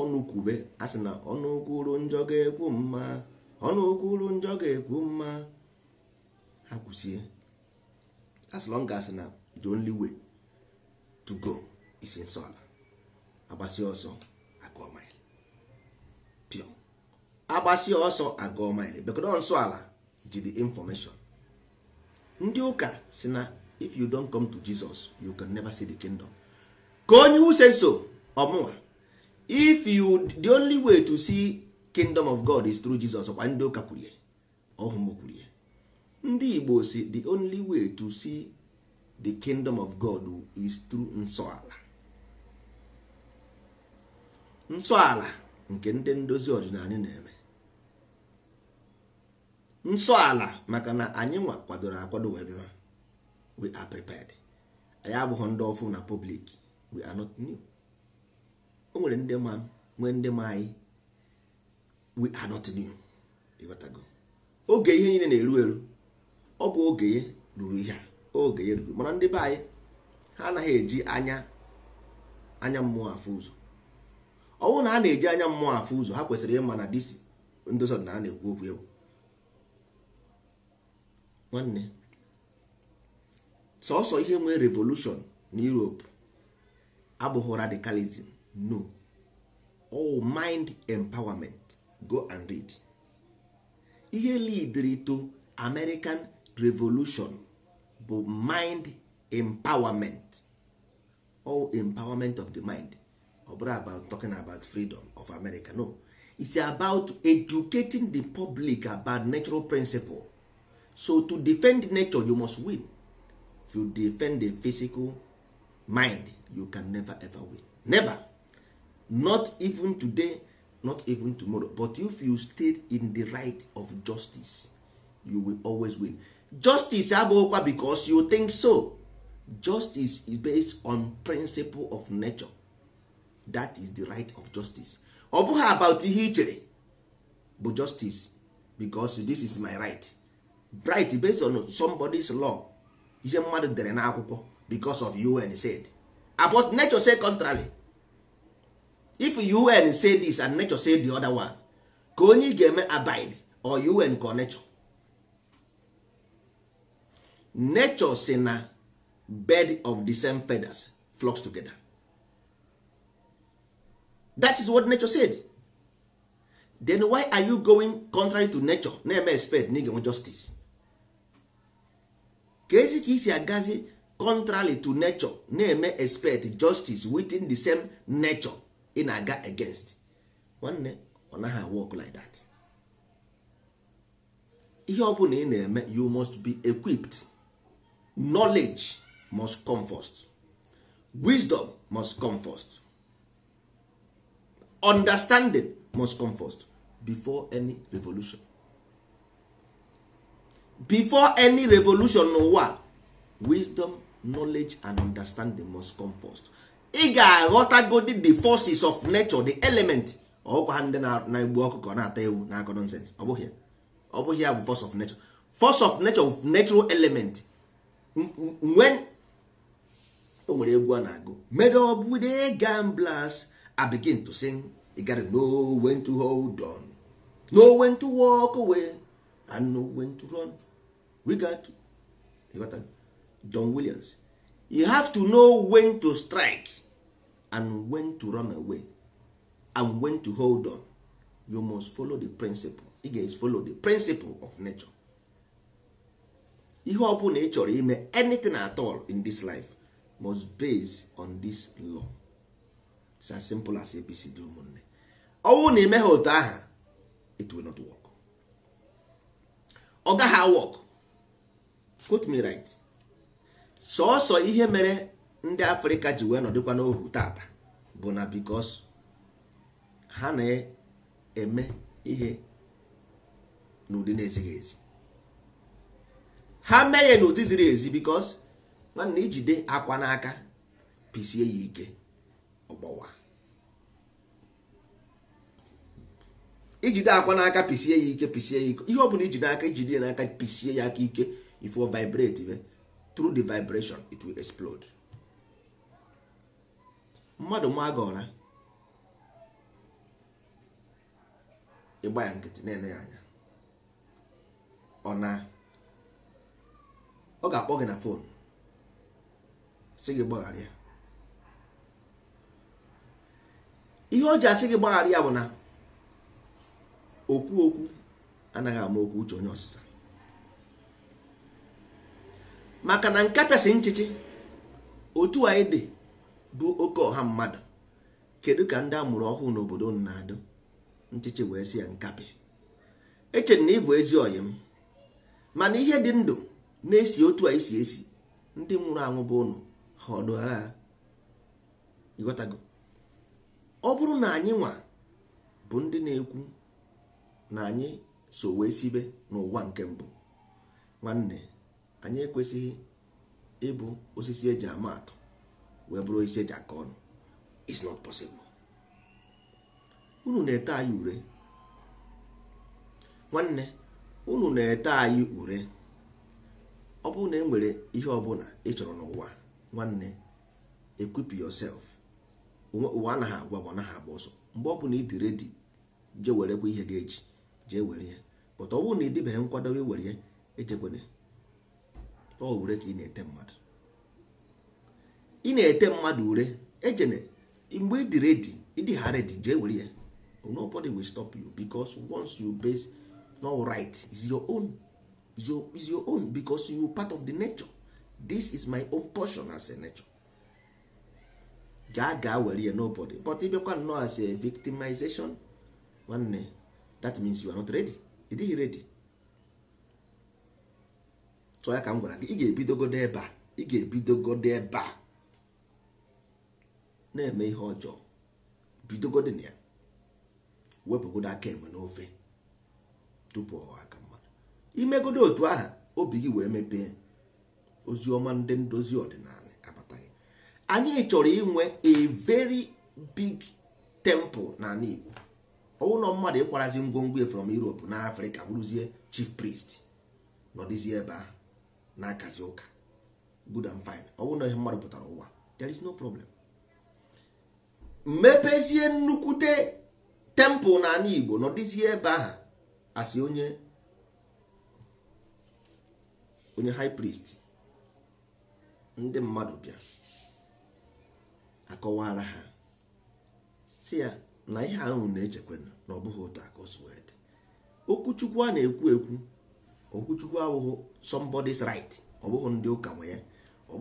ọnụ kwube a sị na ọnụ kwuru njọ ga-ekwu mma ọnụ okwu uru njọ ga-ekwu mma ha kwụsie as long as na the only way to go is nsọ ala agbasi ọsọ agụọ maịlị pio agbasi ọsọ agụọ maịlị bekọdo nsọ ala ji the information ndị ụka si na if you don't come to Jesus you can never see the kingdom ka onye use so ọmụwa if you the only way to see kingdom of god is through jesus kwa ndị ụka kwurie ọhụm kwurie ndị igbo si the only way to see the kingdom of god is through nsọala nsọala nke ndị ndozi ọdịnala na-eme nsọala maka na anyị nwa kwadoro akwado wee bịa we are prepared anyị abụghị ndị ọfụma na public we are not new o nwere ndị ma nwee ndị ma anyị we are not new oge ihe niile na-eru eru ọ bụ oge ya ruru ihe oge ya ruru mana ndị be anyị ha anaghị eji anya anya mmụọ afụ ụzọ ọ na ha na-eji anya mmụọ afụ ụzọ ha kwesịrị ịma na disi ndozi ọdịnala na-ekwu okwu egwu. nwanne sọsọ ihe nwee revolushon na Europe abụghị radicalism no mind empowerment go and read ihe lead to American Revolution bụ mind empowerment all empowerment of the mind ọ about talking about freedom of America no it's about educating the public about natural principle so to defend nature you must win if you defend the physical mind you can never ever win never not even today not even tomorrow but if you stayed in the right of justice you will always win justice abụghịkwa because you think so justice is based on principle of nature that is the right of justice ọ bụghị about ihe but bụ justice because this is my right right based on somebody's law ihe mmadụ dere n'akwụkwọ because of UN said about nature say contrary if un say this and nature say the other one ka onye ị ga-eme abide or un ka nature nature si na bed of the same feathers flocks together that is what nature said then why are you going contrary to nature na-eme expect na ị justice ka ezi ka isi agazi contrary to nature na-eme expect justice within the same nature ị na-aga against nwanne ọ naghị work like that ihe ọ bụla ị na-eme you must be equipped knowledge must come first wisdom must come first understanding must come first before any revolution before any revolution n'ụwa wisdom knowledge and understanding must come first ị ga-aghọtagodi the forces of nature the element ọkwa ha ndị na-egbu ọkụkọ na-ata ewu na-akọ nonsense ọ bụghị ọ bụghị ya bụ force of nature force of nature of natural element when o nwere egwu a na-agụ made up with the gamblers I begin to sing you gotta know when to hold on No when to walk away and no when to run we got to Don Williams you have to know when to strike and when to run away and when to hold on you must follow the principle you ga follow the principle of nature ihe ọ bụla ị chọrọ ime anything at all in this life must base on this law it's as simple as apc dị ụmụnne ọnwụ na ime ha otu aha it will not work ọ gaghị work quote me right sọọsọ ihe mere ndị afrịka ji wee nọdịkwa n'ohu tata bụ na bikos ha na-eme ihe n'ụdị na-ezighị ezi ha mee ya n'ụdị ziri ezi bikos nwanne ijide akwa n'aka pisie ya ike ọgbawa ijide akwa n'aka pisie ya ike pisie ya ike ihe ọ bụla ijide aka ijide n'aka pisie ya aka ike if vibrate through the vibration it will explode mmadụ ma gị ụra ịgba ya nkịtị na-ele ya anya ọ na ọ ga-akpọ gị na fon sị gị gbaghara ihe o ji asị gị gbaghara ya bụ na okwu okwu anaghị ama okwu uche onye ọsịsa maka na nke pịasị nchịchị otu anyị dị bụ oke ọha mmadụ kedu ka ndị amụrụ ọhụụ n'obodo na-adụ nchịchị wee si ya nkapị echere na ịbụ ezi ọyị m mana ihe dị ndụ na-esi otu a isi esi ndị nwụrụ anwụ bụ ụnụ ha ọdụ agha ọ bụrụ na anyị nwa bụ ndị na-ekwu na anyị so wee sibe n'ụwa nke mbụ nwanne anyị ekwesịghị ịbụ osisi eji ama atụ wee bụrụ isi eji aka ọnụ is not possible unu na-ete anyị ure nwanne unu na-ete anyị ure ọ bụrụ na e nwere ihe ọbụla ị chọrọ n'ụwa nwanne eh? equip yourself ụwa anaghị agwa bụ anaghị agba ọsọ mgbe ọ bụla ị dị redi je werekwa ihe ga-eji jee were ya pụta ọ bụrụ na ị dịbeghị nkwado were ya echekwana ọ wure ka ị na-ete mmadụ ị na-ete mmadụ ure ejene mgbe ịdị redi ịdị ha redi je were ya nobody will stop you because once you base no right is your own is your, is your own because you part of the nature this is my own portion as a nature gaa gaa were ya nobody but ịbịakwa nnọọ as a victimization nwanne that means you are not ready you redi ready so ya ka m gwara gị ị ga-ebidogodo ebe a ị ga-ebidogodo ebe a na-eme ihe ọjọọ bidogodo na ya wepụgodo aka enwe n'ofe tupu ọha aka mmadụ imegodo otu ahụ obi gị wee mepee ozi ndị ndozi ọdịnala abataghị anyị chọrọ inwe a very big temple n'ala Igbo ọwụlọ mmadụ ịkwarazi ngwongwo from Europe na afrika bụrụzie chief priest n'ọdịzi ebe ahụ na-akazi ụka good and fine ọwụlọ ihe mmadụ pụtara ụwa there is no problem mepezie nnukwute tempụl n'ala igbo nọdịzie ebe ahụ asị onye onye high priest ndị mmadụ bịa akọwara ha si ya na ihe ahụ na-echekwa na ọ bụghị ụtọ aka okwuchukwu a na-ekwu ekwu okwuchukwu abụghị somebody's right ọ bụghị ndị ụka nwe ya ọ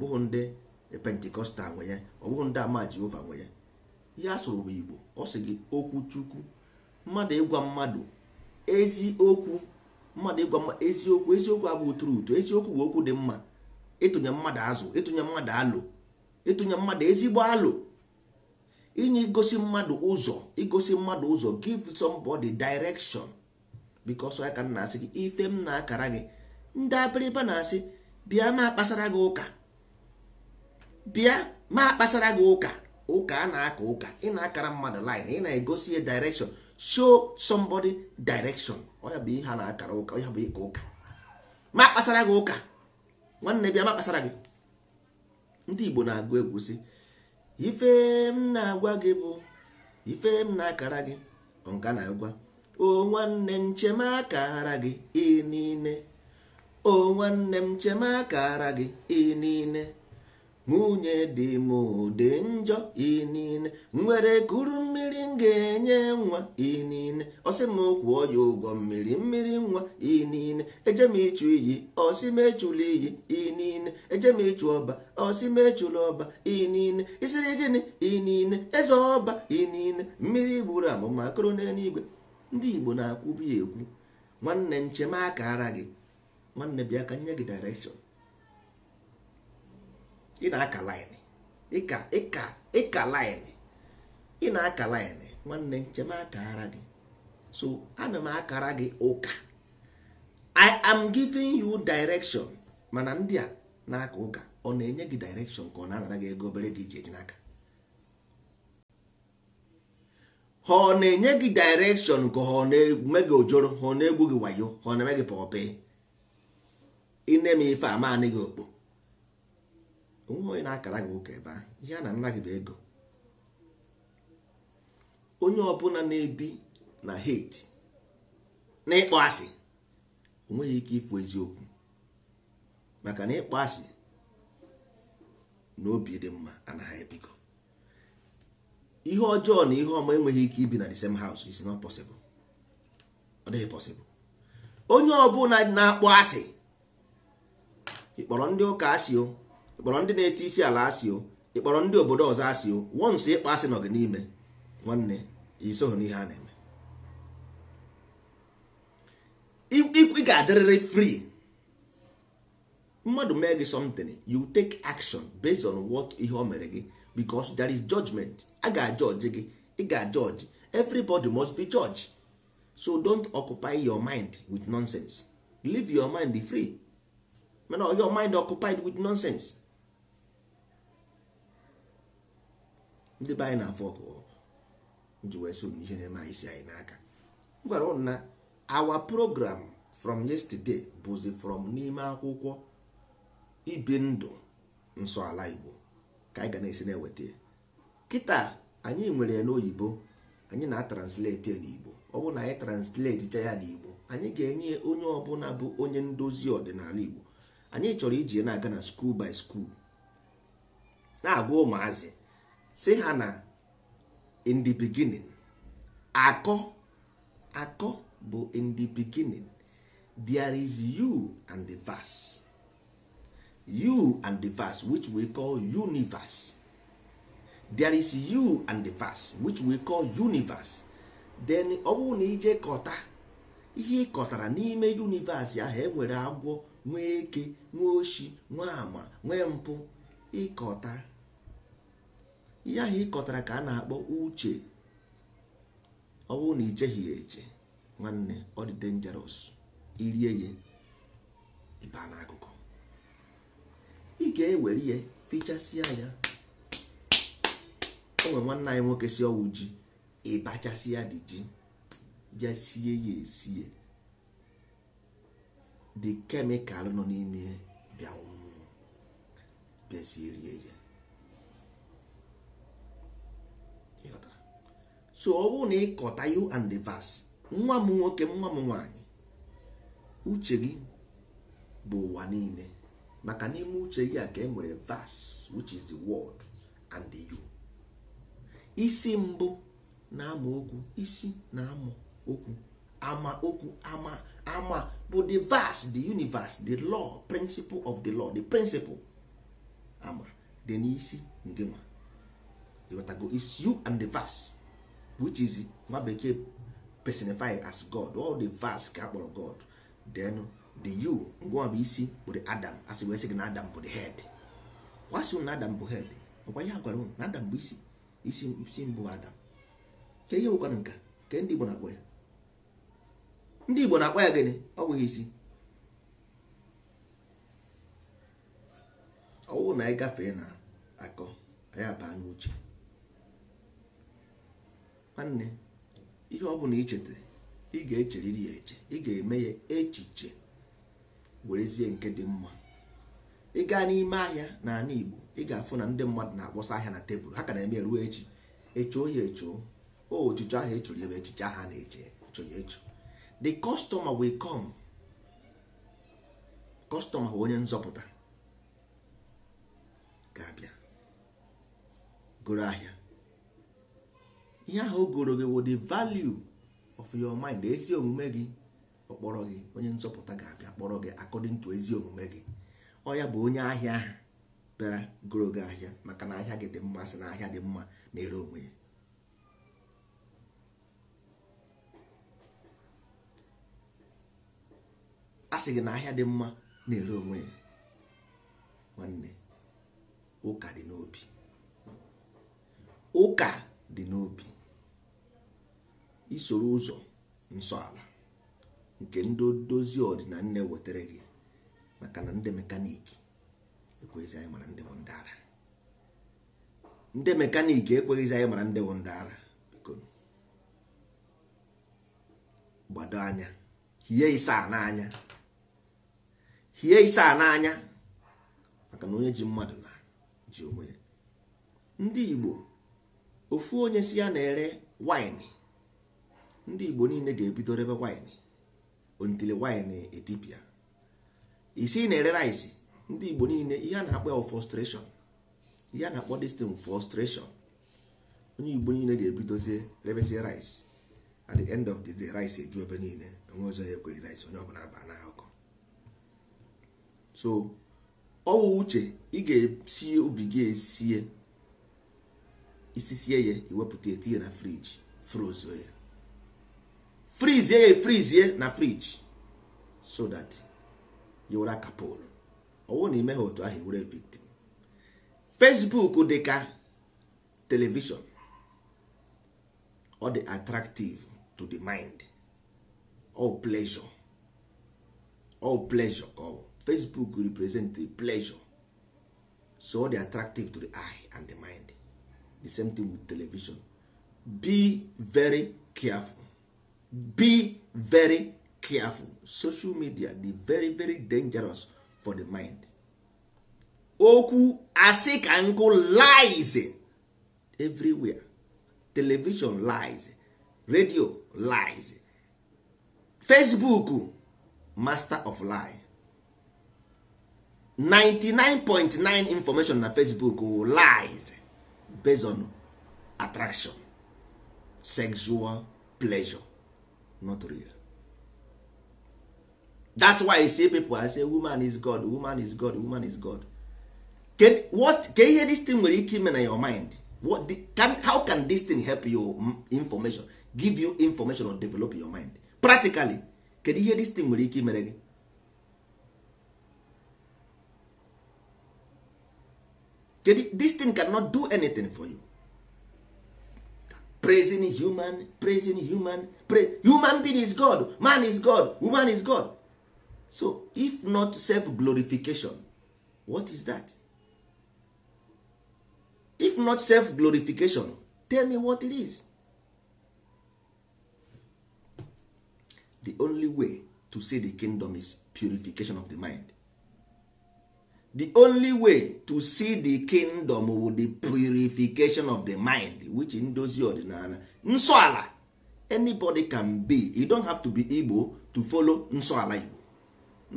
bụghị ndị pentikọstal nwe ya ọ ndị ama jehova nwe ya ihe sụrụ bụ igbo ọ sị gị okwu chukwu mmadụ ịgwa mmadụ eziokwu mmadụ ịgwa mmadụ eziokwu eziokwu abụghị tụrụ ụtọ eziokwu bụ okwu dị mma ịtụnye mmadụ azụ ịtụnye mmadụ alụ ịtụnye mmadụ ezigbo alụ inye igosi mmadụ ụzọ igosi mmadụ ụzọ give somebody direction because ya ka m na-asị gị ife m na-akara gị ndị abịrịba na-asị bịa ma kpasara gị ụka bịa ma kpasara gị ụka ụka a na-aka ụka ị na-akara mmadụ line ị na-egosi ya direction show somebody direction ọya bụ ihe a na-akara ụka ya bụ ịka ụka ma kpasara gị ụka nwanne bịa ma kpasara gị ndị Igbo na-agụ egwu si ife m na-agwa gị bụ ife m na-akara gị ọnka na-agwa o nwanne m chema akara gị ị niile o nwanne m chema akara gị ị niile nwunye dị m dị njọ inine nwere kuru mmiri m ga-enye nwa inine ọsị m kwụọ ya ụgwọ mmiri mmiri nwa inine eje m ịchụ iyi ọsị m echula iyi inine eje m ịchụ ọba ọsị m ọba inine isiri gịnị inine eze ọba inine mmiri gburu amụma akụrụ n'eluigwe ndị Igbo na-akwubi ekwu nwanne nchemaka ara gị nwanne bịa ka nye gị direction ị na-aka line ịka ịka ịka line ị na-aka line nwanne nchema akara gị so ana m akara gị ụka i am giving you direction mana ndị a na-aka ụka ọ na-enye gị direction ka ọ na-anara gị ego obere gị iji eji n'aka ha ọ na-enye gị direction ka ọ na-eme gị ojoro ha ọ na-egwu gị wayo ha ọ na-eme gị pọpe ị na-eme ife ama anị gị okpo onwe onye na-akara gị ụka ebe ahụ ihe a na nna bụ ego onye ọbụla na-ebi na hate na ịkpọ asị onweghị ike ịfụ eziokwu maka na ịkpọ asị na obi dị mma anaghị ebigo ihe ọjọọ na ihe ọma enweghị ike ibi na the same house is not possible ọ dịghị possible onye ọbụla na-akpọ asị ị kpọrọ ndị ụka asị o ịkpọrọ ndị na-eti isi ala asị o ịkpọrọ ndị obodo ọzọ asị o wọnsị ịkpọ asị nọ gị n'ime nwanne isoghị n'ihe a na-eme ị ga-adịrịrị free mmadụ mee gị something you take action based on what ihe o mere gị because there is judgment a ga-ajọji gị ị ga-ajọji everybody must be judge. so don't occupy your mind with nonsense leave your mind free mana your mind occupied with nonsense ndị be anyị na afọ ọkụ ji wee so n'ihe na-eme anyị si anyị n'aka m gwara ụnụ na awa program from yesterday bụzi from n'ime akwụkwọ ibi ndụ nsọ ala igbo ka anyị ga na-esi na-eweta ya kịta anyị nwere ya n'oyibo anyị na-atranslate ya n'igbo ọ bụrụ na anyị translate cha ya n'igbo anyị ga-enye onye ọbụla bụ onye ndozi ọdịnala igbo anyị chọrọ iji na-aga na skuul by skuul na-agwa ụmụazị si ha na in the beginning akọ akọ bụ in the beginning there is you and the verse you and the verse which we call universe there is you and the verse which we call universe then ọ bụrụ na ije kọta ihe ị kọtara n'ime universe ahụ enwere agwọ nwee eke nwee oshi nwee ama nwee mpụ ịkọta ihe ahụ ịkọtara ka a na-akpọ uche ọ bụrụ na ijeghị ya eche nwanne ọ dị dangerous irie ya ịba n'akụkụ ị ga-ewere ya fichasịa ya o nwere nwanne anyị nwoke si ọwụ ji ya dị ji jasie ya esie dị kemịkal nọ n'ime bịa bịazie rie ya so ọ bụrụ na ịkọta you and the verse nwa m nwoke nwa m nwaanyị uche gị bụ ụwa niile maka n'ime uche gị a ka e nwere verse which is the word and the you isi mbụ na-ama okwu isi na-ama okwu ama okwu ama ama bụ the verse the universe the law principle of the law the principle ama dị n'isi nke ma you and the verse which is nwa bekee personified as god all the vast ka kpọrọ god then the you ngwa bụ isi bụ the adam asị wee sị na adam bụ the head kwasi na adam bụ head ọkwa ya gwara na adam bụ isi isi isi mbụ adam ke ihe bụkwana nka ke ndị igbo na-akpọ ya ndị igbo na-akpọ ya gịnị ọ bụghị isi ọwụ na anyị gafee na akọ anyị abaa n'uche nwanne ihe ọ bụla ichetara ị ga-echeriri ya eche ị ga-eme ya echiche werezie nke dị mma ị gaa n'ime ahịa n'ala Igbo ị ga-afụ na ndị mmadụ na-akpọsa ahịa na tebụl ha ka na-eme eruo echi echoo ya echo o e echiche ahụ ebe echiche ahụ na-eche echo ya e the customer will come bụ onye nzọpụta ga-abịa goro ahịa ihe ahụ o gị wo dị value of your mind ezi omume gị ọkpọrọ gị onye nzọpụta ga-abịa kpọrọ gị according to ezi omume gị ọ ya bụ onye ahịa ahụ bịara goro gị ahịa maka na ahịa gị dị mma sị na ahịa dị mma na-ere onwe ya a gị na ahịa dị mma na-ere onwe ya nwanne ụka dị n'obi ụka dị n'obi isoro ụzọ nsọ ala nke ndị dozie ọdịna nne wetara gị maka na ndị mekaniki ekweghịzi anyị mara ndị bụ ndị ara ndị mekaniki ekweghịzi anyị mara ndị bụ ndị ara gbado anya hie isaa n'anya hie isaa n'anya maka na onye ji mmadụ na ji onwe ya ndị Igbo ofu onye si ya na-ere waịnị ndị igbo niile ga-ebido rebe waịnị ontili waịnị etipịa isi na-ere rice ndị igbo niile ihe a na-akpọ ya frustration ihe a na-akpọ destin frustration onye igbo niile ga-ebidozie rebezie rice at the end of the day rice eju ebe niile onwe ọzọ ya ekweri rice onye ọbụla aba na akụkọ so ọwụ uche ị ga esi obi gị esie isisie ya iwepụta etinye na friji frozo ya frizie ya efrizie na friji so that yowere kapol ọwụ na ime otu ahụ were victim facebook dị ka television ọ dị attractive to the mind all pleasure all pleasure ka ọ bụ facebook represent the pleasure so ọ dị attractive to the eye and the mind the same thing with television be very careful be very careful social media dey very very dangerous for the mind okwu asị ka nkụ lies everywhere television lies radio lies facebook master of lie 99.9 information na facebook oh, lies based on attraction sexual pleasure not real that's why I say people I say woman is God woman is God woman is God can what ka ihe this thing nwere ike ime na your mind what the, can, how can this thing help you mm, information give you information or develop your mind practically you ihe this thing nwere ike imere gị kedu this thing cannot do anything for you praising human praising human pray human being is god man is god woman is god so if not self glorification what is that if not self glorification tell me what it is the only way to see the kingdom is purification of the mind the only way to see the kingdom wu the purification of the mind which ndozi ọdịnala nsọ ala anybody can be you don't have to be igbo to follow nsọ ala igbo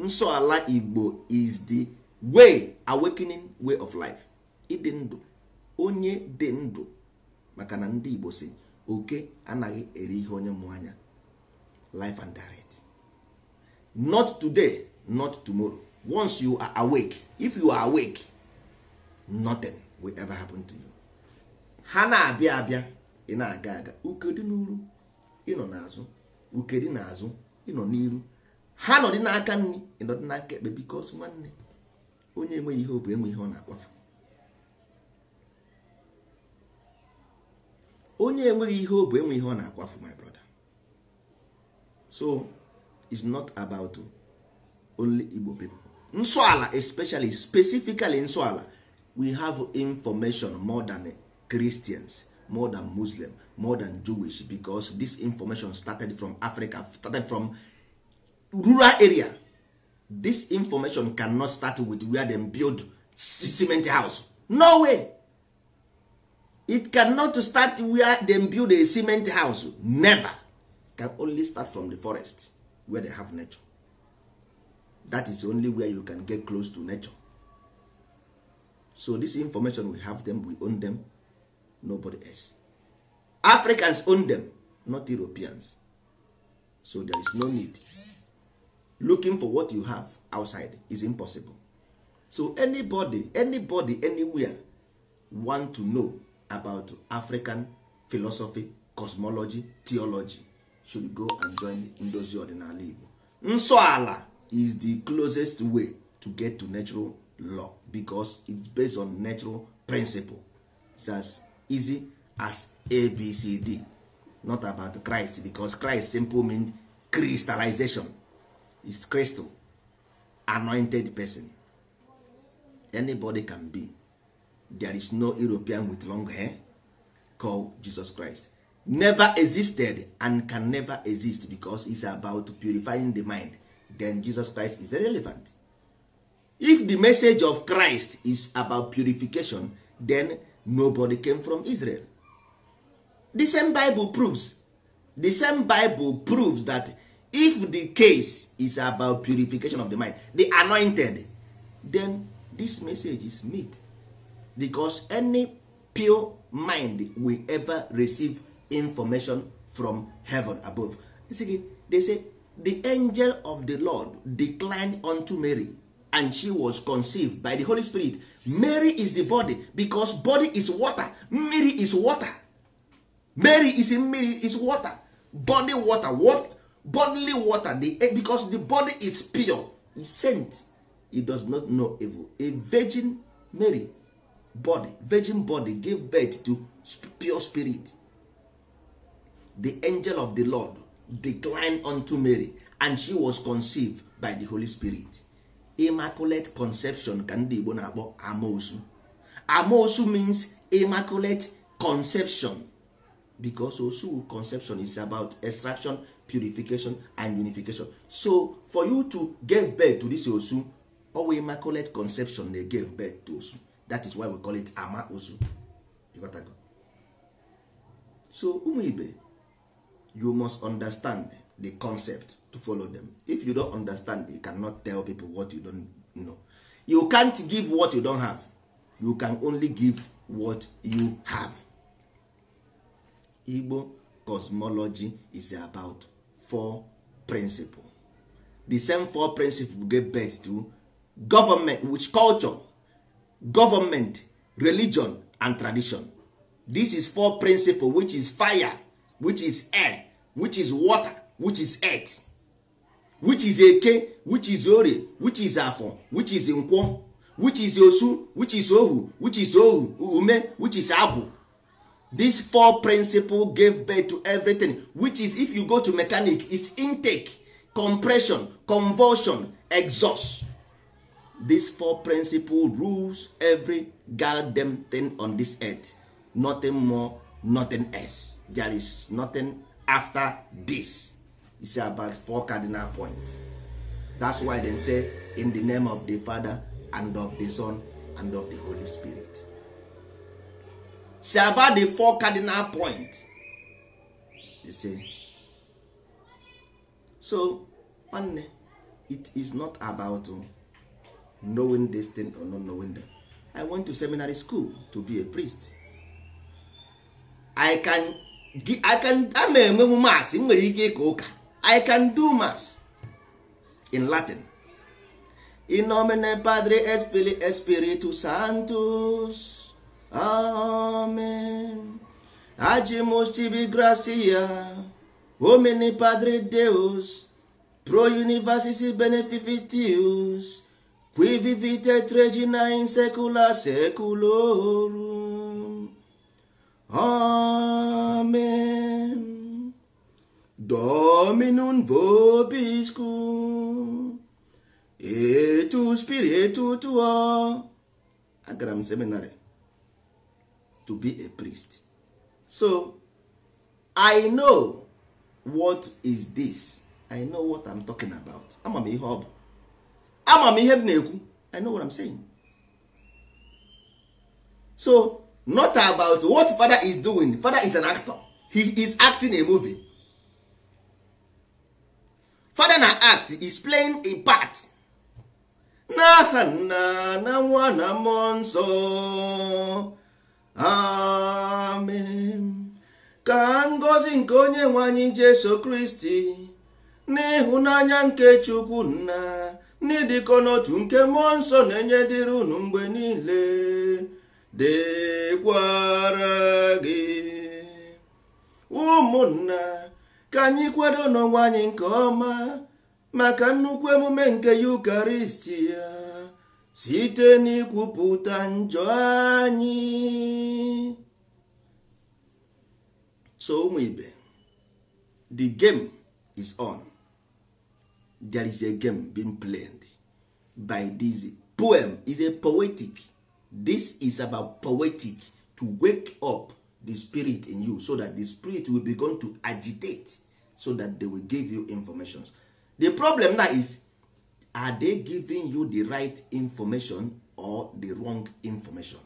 nsọ ala igbo is the way awakening way of life ịdị ndụ onye dị ndụ maka na ndị igbo si oke anaghị eri ihe onye mụ anya life and direct not today not tomorrow once you are awake if you are awake nothing will ever happen to you ha na-abịa abịa ị na-aga aga ukedi n'uru ịnọ n'azụ ukedi n'azụ ịnọ n'iru ha nọ dị n'aka nri dị n'aka ekpe bikos nwanne onye enweghị ihe ọ enwe ihe ọ na-akpafu onye enweghị ihe ọ enwe ihe ọ na-akwafu my brother so it's not about only Igbo people nsọala especially specifically nsọala we have information more than Christians more than Muslim more than Jewish because this information started from Africa started from rural area this information cannot start with where dem build cement house no way it cannot start where dem build a cement house never can only start from the forest where they have nature that is only where you can get close to nature so this information we have them we own them nobody else africans own them not europeans so there is no need looking for what you have outside is impossible so anybody anybody anywhere want to know about african philosophy cosmology theology should go and join ndozi ọdịnala igbo nsọ ala is the closest way to get to natural law because it's based on natural principle it's as easy as abcd not about christ because christ simple means crystallization is crystal anointed person anybody can be there is no european with long hair called jesus christ never existed and can never exist because is about purifying the mind then Jesus Christ is irrelevant. If the message of Christ is about purification, then nobody came from Israel. The same Bible proves the same Bible proves that if the case is about purification of the mind, the anointed, then this message is meat because any pure mind will ever receive information from heaven above. They say the angel of the lord declined unto mary and she was conceived by the holy spirit mary is the body because body is water mmiri is water mary is mmiri is water body water what bodily water the, eh, because the body is pure is sent He does not know evil a virgin mary body virgin body gave birth to pure spirit the angel of the lord declined unto Mary and she was conceived by the Holy Spirit immaculate conception ka ndị Igbo na-akpọ amosu amoosu means immaculate conception because osu conception is about extraction purification and unification so for you to give birth to this osu owe immaculate conception dey give birth to osu that is why we call it ama osu so ụmụ ibe you must understand the concept to follow them if you don't understand you cannot tell people what you don't know you can't give what you don't have you can only give what you have igbo cosmology is about four principle the same four principle go birth to government which culture government religion and tradition this is four principle which is fire which is air which is water which is earth which is eke which is ori which is afọ which is nkwọ which is osu which is ohu which is ohu ume which is agwụ this four principle gave birth to everything which is if you go to mechanic is intake compression convulsion exhaust these four principle rules every goddamn thing on this earth nothing more nothing else there is nothing after this it's about four cardinal points that's why they say in the name of the father and of the son and of the holy spirit it's about the four cardinal points you see so one it is not about um, knowing this thing or not knowing them i went to seminary school to be a priest i can a ma enwe m mass nwere ike ịka ụka i can do mass in latin in nomine padre Espiritu filii sanctus amen agimus tibi gracia padre deus pro universis beneficitius qui vivitet regina in secula seculorum amen Amen. Dominum vobiscum. Etu spiritu tuo. Agara m seminary to be a priest. So, I know what is this. I know what I'm talking about. Ama m ihe ọ bụ. Ama m ihe m na-ekwu. I know what I'm saying. So, not about what father is doing father is an actor he is acting a movie father na act is playing a part n'aha nna na nwa na mmụọ nsọ amen ka ngozi nke onye nwe jesu kristi n'ịhụnanya nke chukwu nna n'ịdịkọ n'otu nke mmụọ nsọ na-enye dịrị unu mgbe niile dịkwara gị ụmụnna ka anyị kwado n'ọnwa anyị nke ọma maka nnukwu emume nke yukaristi ya site n'ikwupụta njọ anyị so ụmụ ibe the game is on there is a game being played by this poem is a poetic this is about poetic to wake up the spirit in you so that the spirit will begin to agitate so that they will give you information. the problem now is are they giving you the right information or the wrong information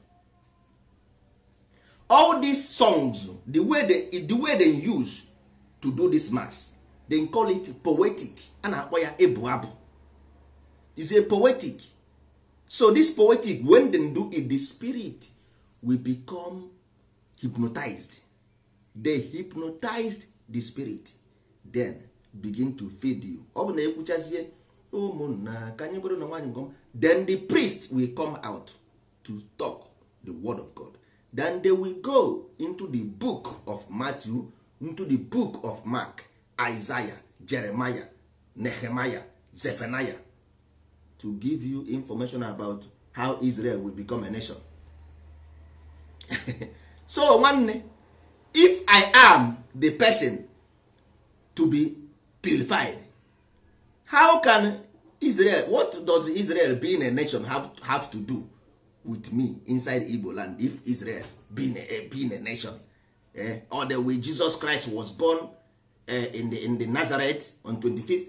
all these songs the way they, the way they use to do this mass they call it poetic a na-akpọ ya ebu abụ is a poetic so this poetic when dem do it the spirit will become hypnotized they hypnotized the spirit then begin to feed you ọ bụ na ekwuchazie ụmụnna ka anyị bụrụ na nwaanyị ngọm then the priest will come out to talk the word of god then they will go into the book of matthew into the book of mark isaiah jeremiah nehemiah zephaniah to give you information about how Israel will become a nation so nwanne if I am the person to be purified how can Israel what does Israel being a nation have, have to do with me inside Igbo land if Israel being a, eh, being a nation eh? or the way Jesus Christ was born eh, in the in the Nazareth on 25th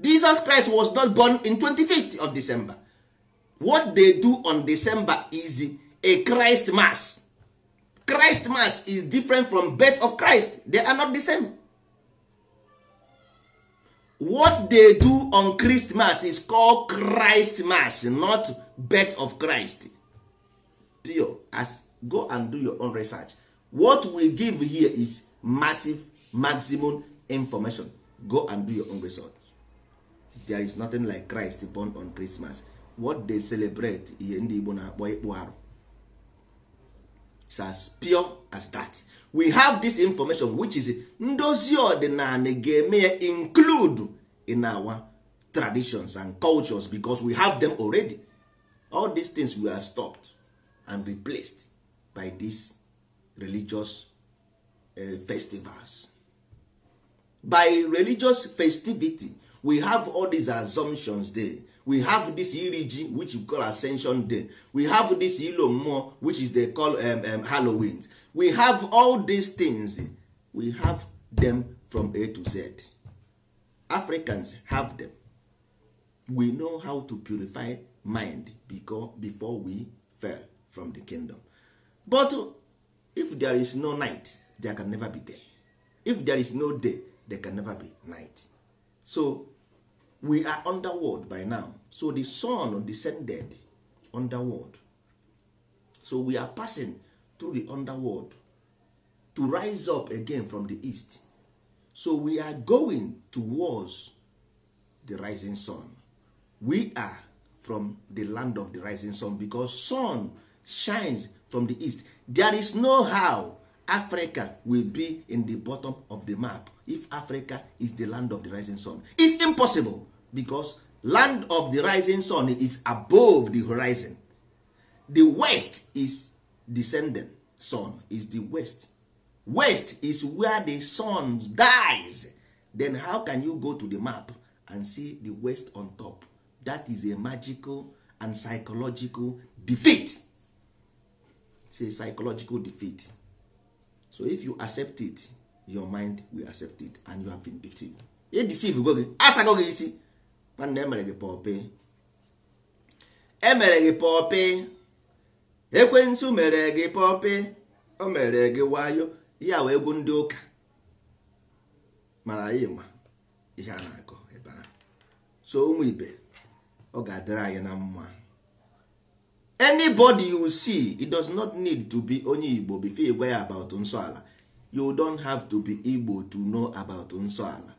jesus christ was not born in 25th of december what they do on december is a christ mass christ mass is different from birth of christ they are not the same what they do on christmas is called christ mass not birth of christ as go and do your own research what we give here is massive maximum information go and do your own research there is nothing like Christ born on Christmas what they celebrate ihe ndị Igbo na-akpọ ịkpụ arụ it's as pure as that we have this information which is ndozi ọdịnala ga-eme include in our traditions and cultures because we have them already all these things were stopped and replaced by these religious eh, festivals by religious festivity we have all these assumptions there we have this iriji which we call ascension day we have this ilo mmụọ which is they call um, um, halloween we have all these things we have them from a to z africans have them we know how to purify mind because before we fell from the kingdom but if there is no night there can never be day if there is no day there can never be night so we are underworld by now so the sun descended underworld so we are passing through the underworld to rise up again from the east so we are going towards the rising sun we are from the land of the rising sun because sun shines from the east there is no how africa will be in the bottom of the map if africa is the land of the rising sun it's impossible because land of the rising sun is above the horizon the west is descending sun is the west west is where the sun dies then how can you go to the map and see the west on top that is a magical and psychological defeat it's a psychological defeat so if you accept it your mind will accept it and you have been deceived. e deceive gị asago gị isi nwanne emere gị pọpị emere gị pọpị ekwentị mere gị pọpị e o mere gị wayo ya wee egwu ndị ụka mara anyị ma ihe a na-akọ ebe so ụmụ ibe ọ ga-adịrị anyị na mma anybody you see it does not need to be onye igbo before you ya about nsọala you don't have to be igbo to know about nsọala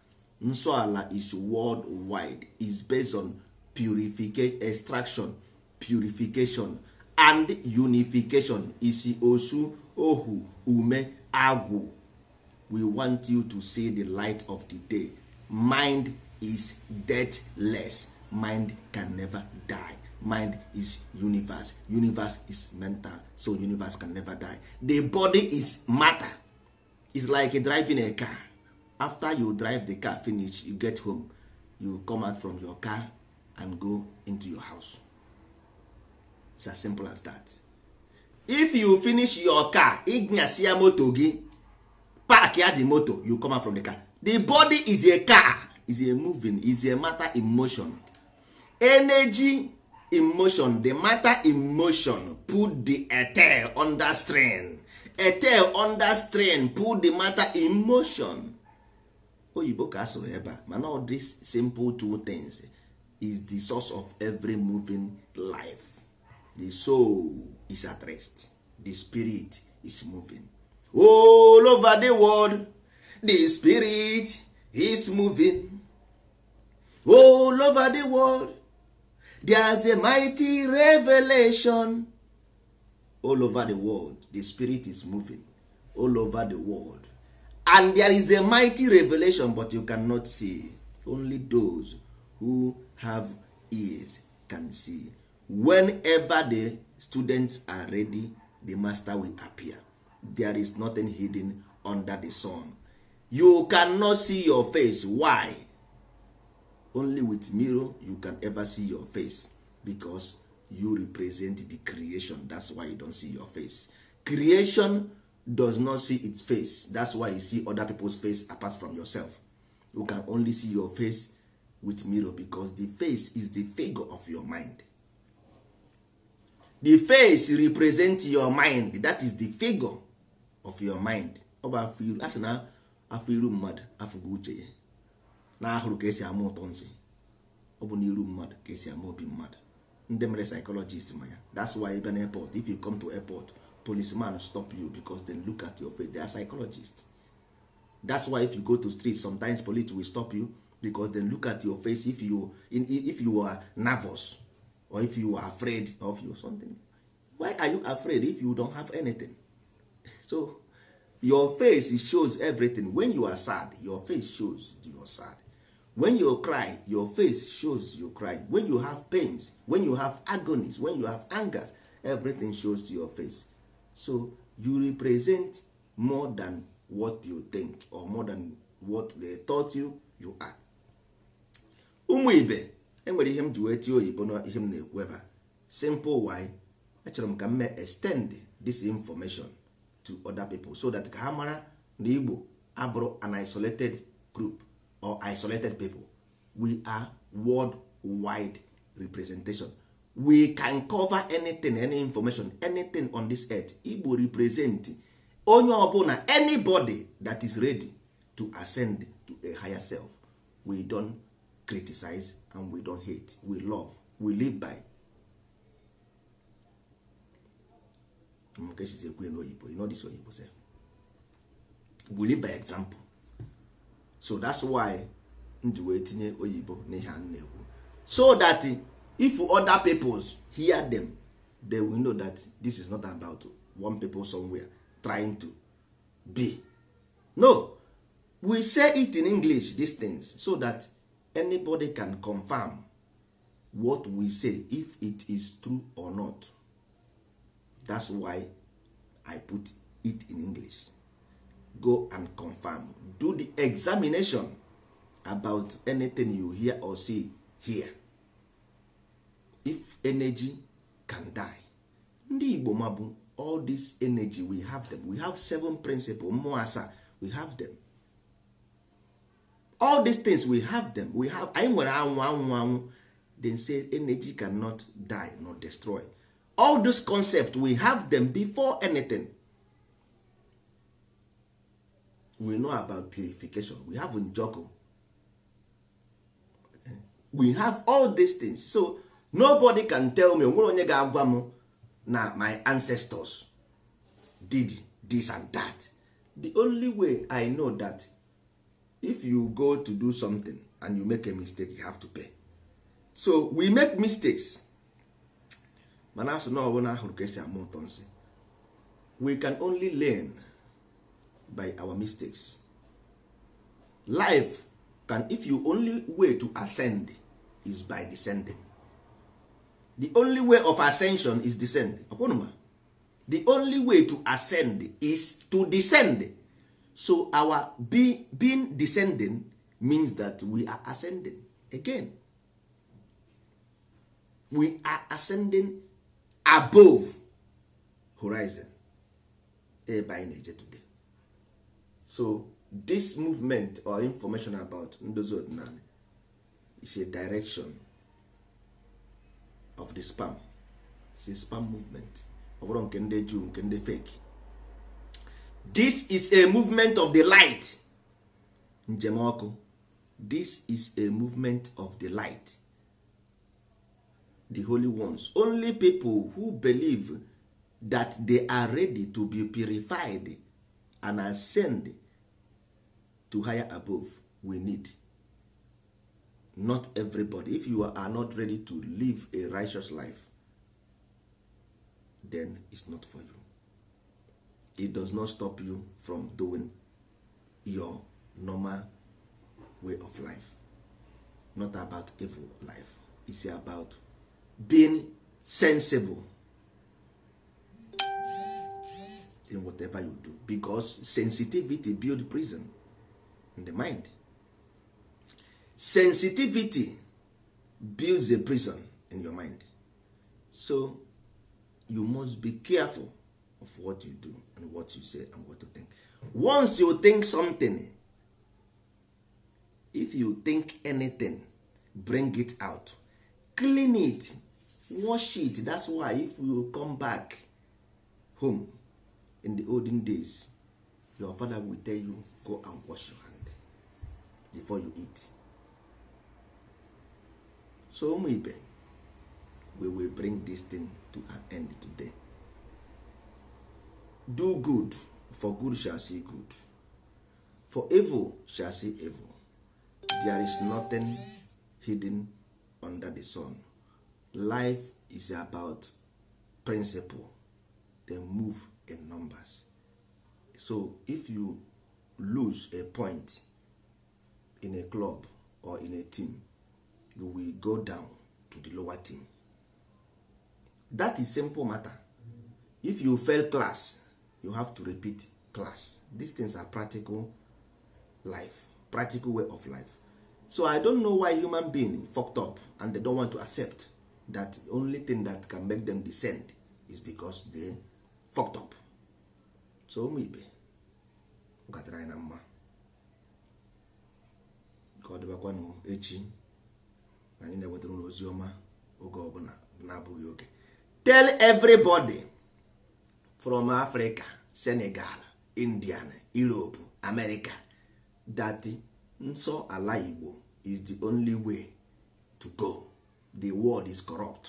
nsọala is world wide is based on purification extraction purification and unification isi osu ohu ume agwụ we want you to see the light of the day mind is deathless mind can never die mind is universe universe is mental so universe can never die the body is matter is like driving a car after you drive the car finish you get home you come out from your car and go into your house it's as simple as that if you finish your car ignyasi ya moto gị park ya the moto you come out from the car the body is a car is a moving is a matter emotion. energy emotion di the matter emotion put the etel under strain etel under strain put the matter emotion. oyibo ka asụrụ ebe a mana all these simple two things is the source of every moving life the soul is at rest the spirit is moving all over the world the spirit is moving all over the world there's a mighty revelation all over the world the spirit is moving all over the world and there is a mighty revelation but you cannot see only those who have ears can see whenever the students are ready the master will appear there is nothing hidden under the sun you cannot see your face why only with mirror you can ever see your face because you represent the creation that's why you don't see your face creation does not see its face that's why you see other people's face apart from yourself you can only see your face with mirror because the face is the figure of your mind the face represent your mind that is the figure of your mind ọ iru na afọ iru mmadụ afụgo uche ya na ahụrụ ka esi ama ụtọ nsi ọ bụ n'iru mmadụ ka esi ama obi mmadụ ndị mere psychologist ma ya that's why ebe na airport if you come to airport policeman stop you because they look at your face they are psychologists that's why if you go to street sometimes police will stop you because they look at your face if you in, if you are nervous or if you are afraid of you something why are you afraid if you don't have anything so your face shows everything when you are sad your face shows you are sad when you cry your face shows you cry when you have pains when you have agonies when you have angers everything shows to your face so you represent more than what you think or more than what they taught you you are. ụmụ ibe enwere ihe m ji wee tie oyibo na ihe m na-ekwu ebe simple why achọrọ m ka m mee extend this information to other people so that ka ha mara na Igbo abụrụ an isolated group or isolated people we are world wide representation we can cover anything any information anything on this earth igbo represent onye ọbụla anybody that is ready to ascend to a higher self we don criticize and we don hate we love we live by you know this oyibo sef? we live by example so that's why m wee tinye oyibo n'ihe a na-ekwu so that if other peoples hear them they will know that this is not about one people somewhere trying to be no we say it in english dis things so that anybody can confirm what we say if it is true or not that's why i put it in english go and confirm do the examination about anything you hear or see here if energy can die ndị igbo mabụ all this energy we have them we have seven principles mmụọ asaa we have them all these things we have them we have anyị nwere anwụ anwụ anwụ then say energy cannot die nor destroy all those concepts we have them before anything we know about purification we have njoku we have all these things so nobody can tell me onwere onye ga-agwa m na my ancestors did this and that the only way i know that if you go to do something and you make a mistake you have to pay so we make mistakes mana asụ na ọbụla ahụrụ ka esi ama ụtọ nsị we can only learn by our mistakes life can if you only way to ascend is by descending the only way of ascension is descend ọkwanụma the only way to ascend is to descend so our be, being descending means that we are ascending again we are ascending above horizon ebe eh, anyị today so this movement or information about ndozi na is a direction of the spam si spam movement ọ bụrụ nke ndị juu nke ndị fake this is a movement of the light njem ọkụ this is a movement of the light the holy ones only people who believe that they are ready to be purified and ascend to higher above we need not everybody if you are not ready to live a righteous life then it's not for you it does not stop you from doing your normal way of life not about evil life it's about being sensible in whatever you do because sensitivity build prison in the mind sensitivity builds a prison in your mind so you must be careful of what you do and what you say and what you think once you think something if you think anything bring it out clean it wash it that's why if you come back home in the olden days your father will tell you go and wash your hand before you eat so ụmụ ibe we will bring this thing to an end today do good for good shall see good for evil shall see evil there is nothing hidden under the sun life is about principle dem move in numbers so if you lose a point in a club or in a team you will go down to the lower thing that is simple matter if you fail class you have to repeat class these things are practical life practical way of life so i don't know why human being fucked up and they don't want to accept that only thing that can make them descend is because they fucked up so ụmụ ibe gatara anyị na mma ka ọ dịbakwanụ echi anyị na-ewetara ụlọ ozi ọma oge ọbụla na-abụghị oge tell everybody from Africa Senegal Indian Europe America that nso ala Igbo is the only way to go the world is corrupt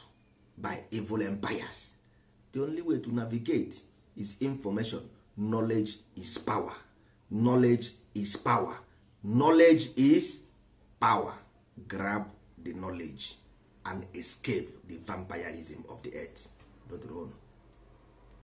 by evil empires the only way to navigate is information knowledge is power knowledge is power knowledge is power grab the knowledge and escape the vampirism of the earth dodoro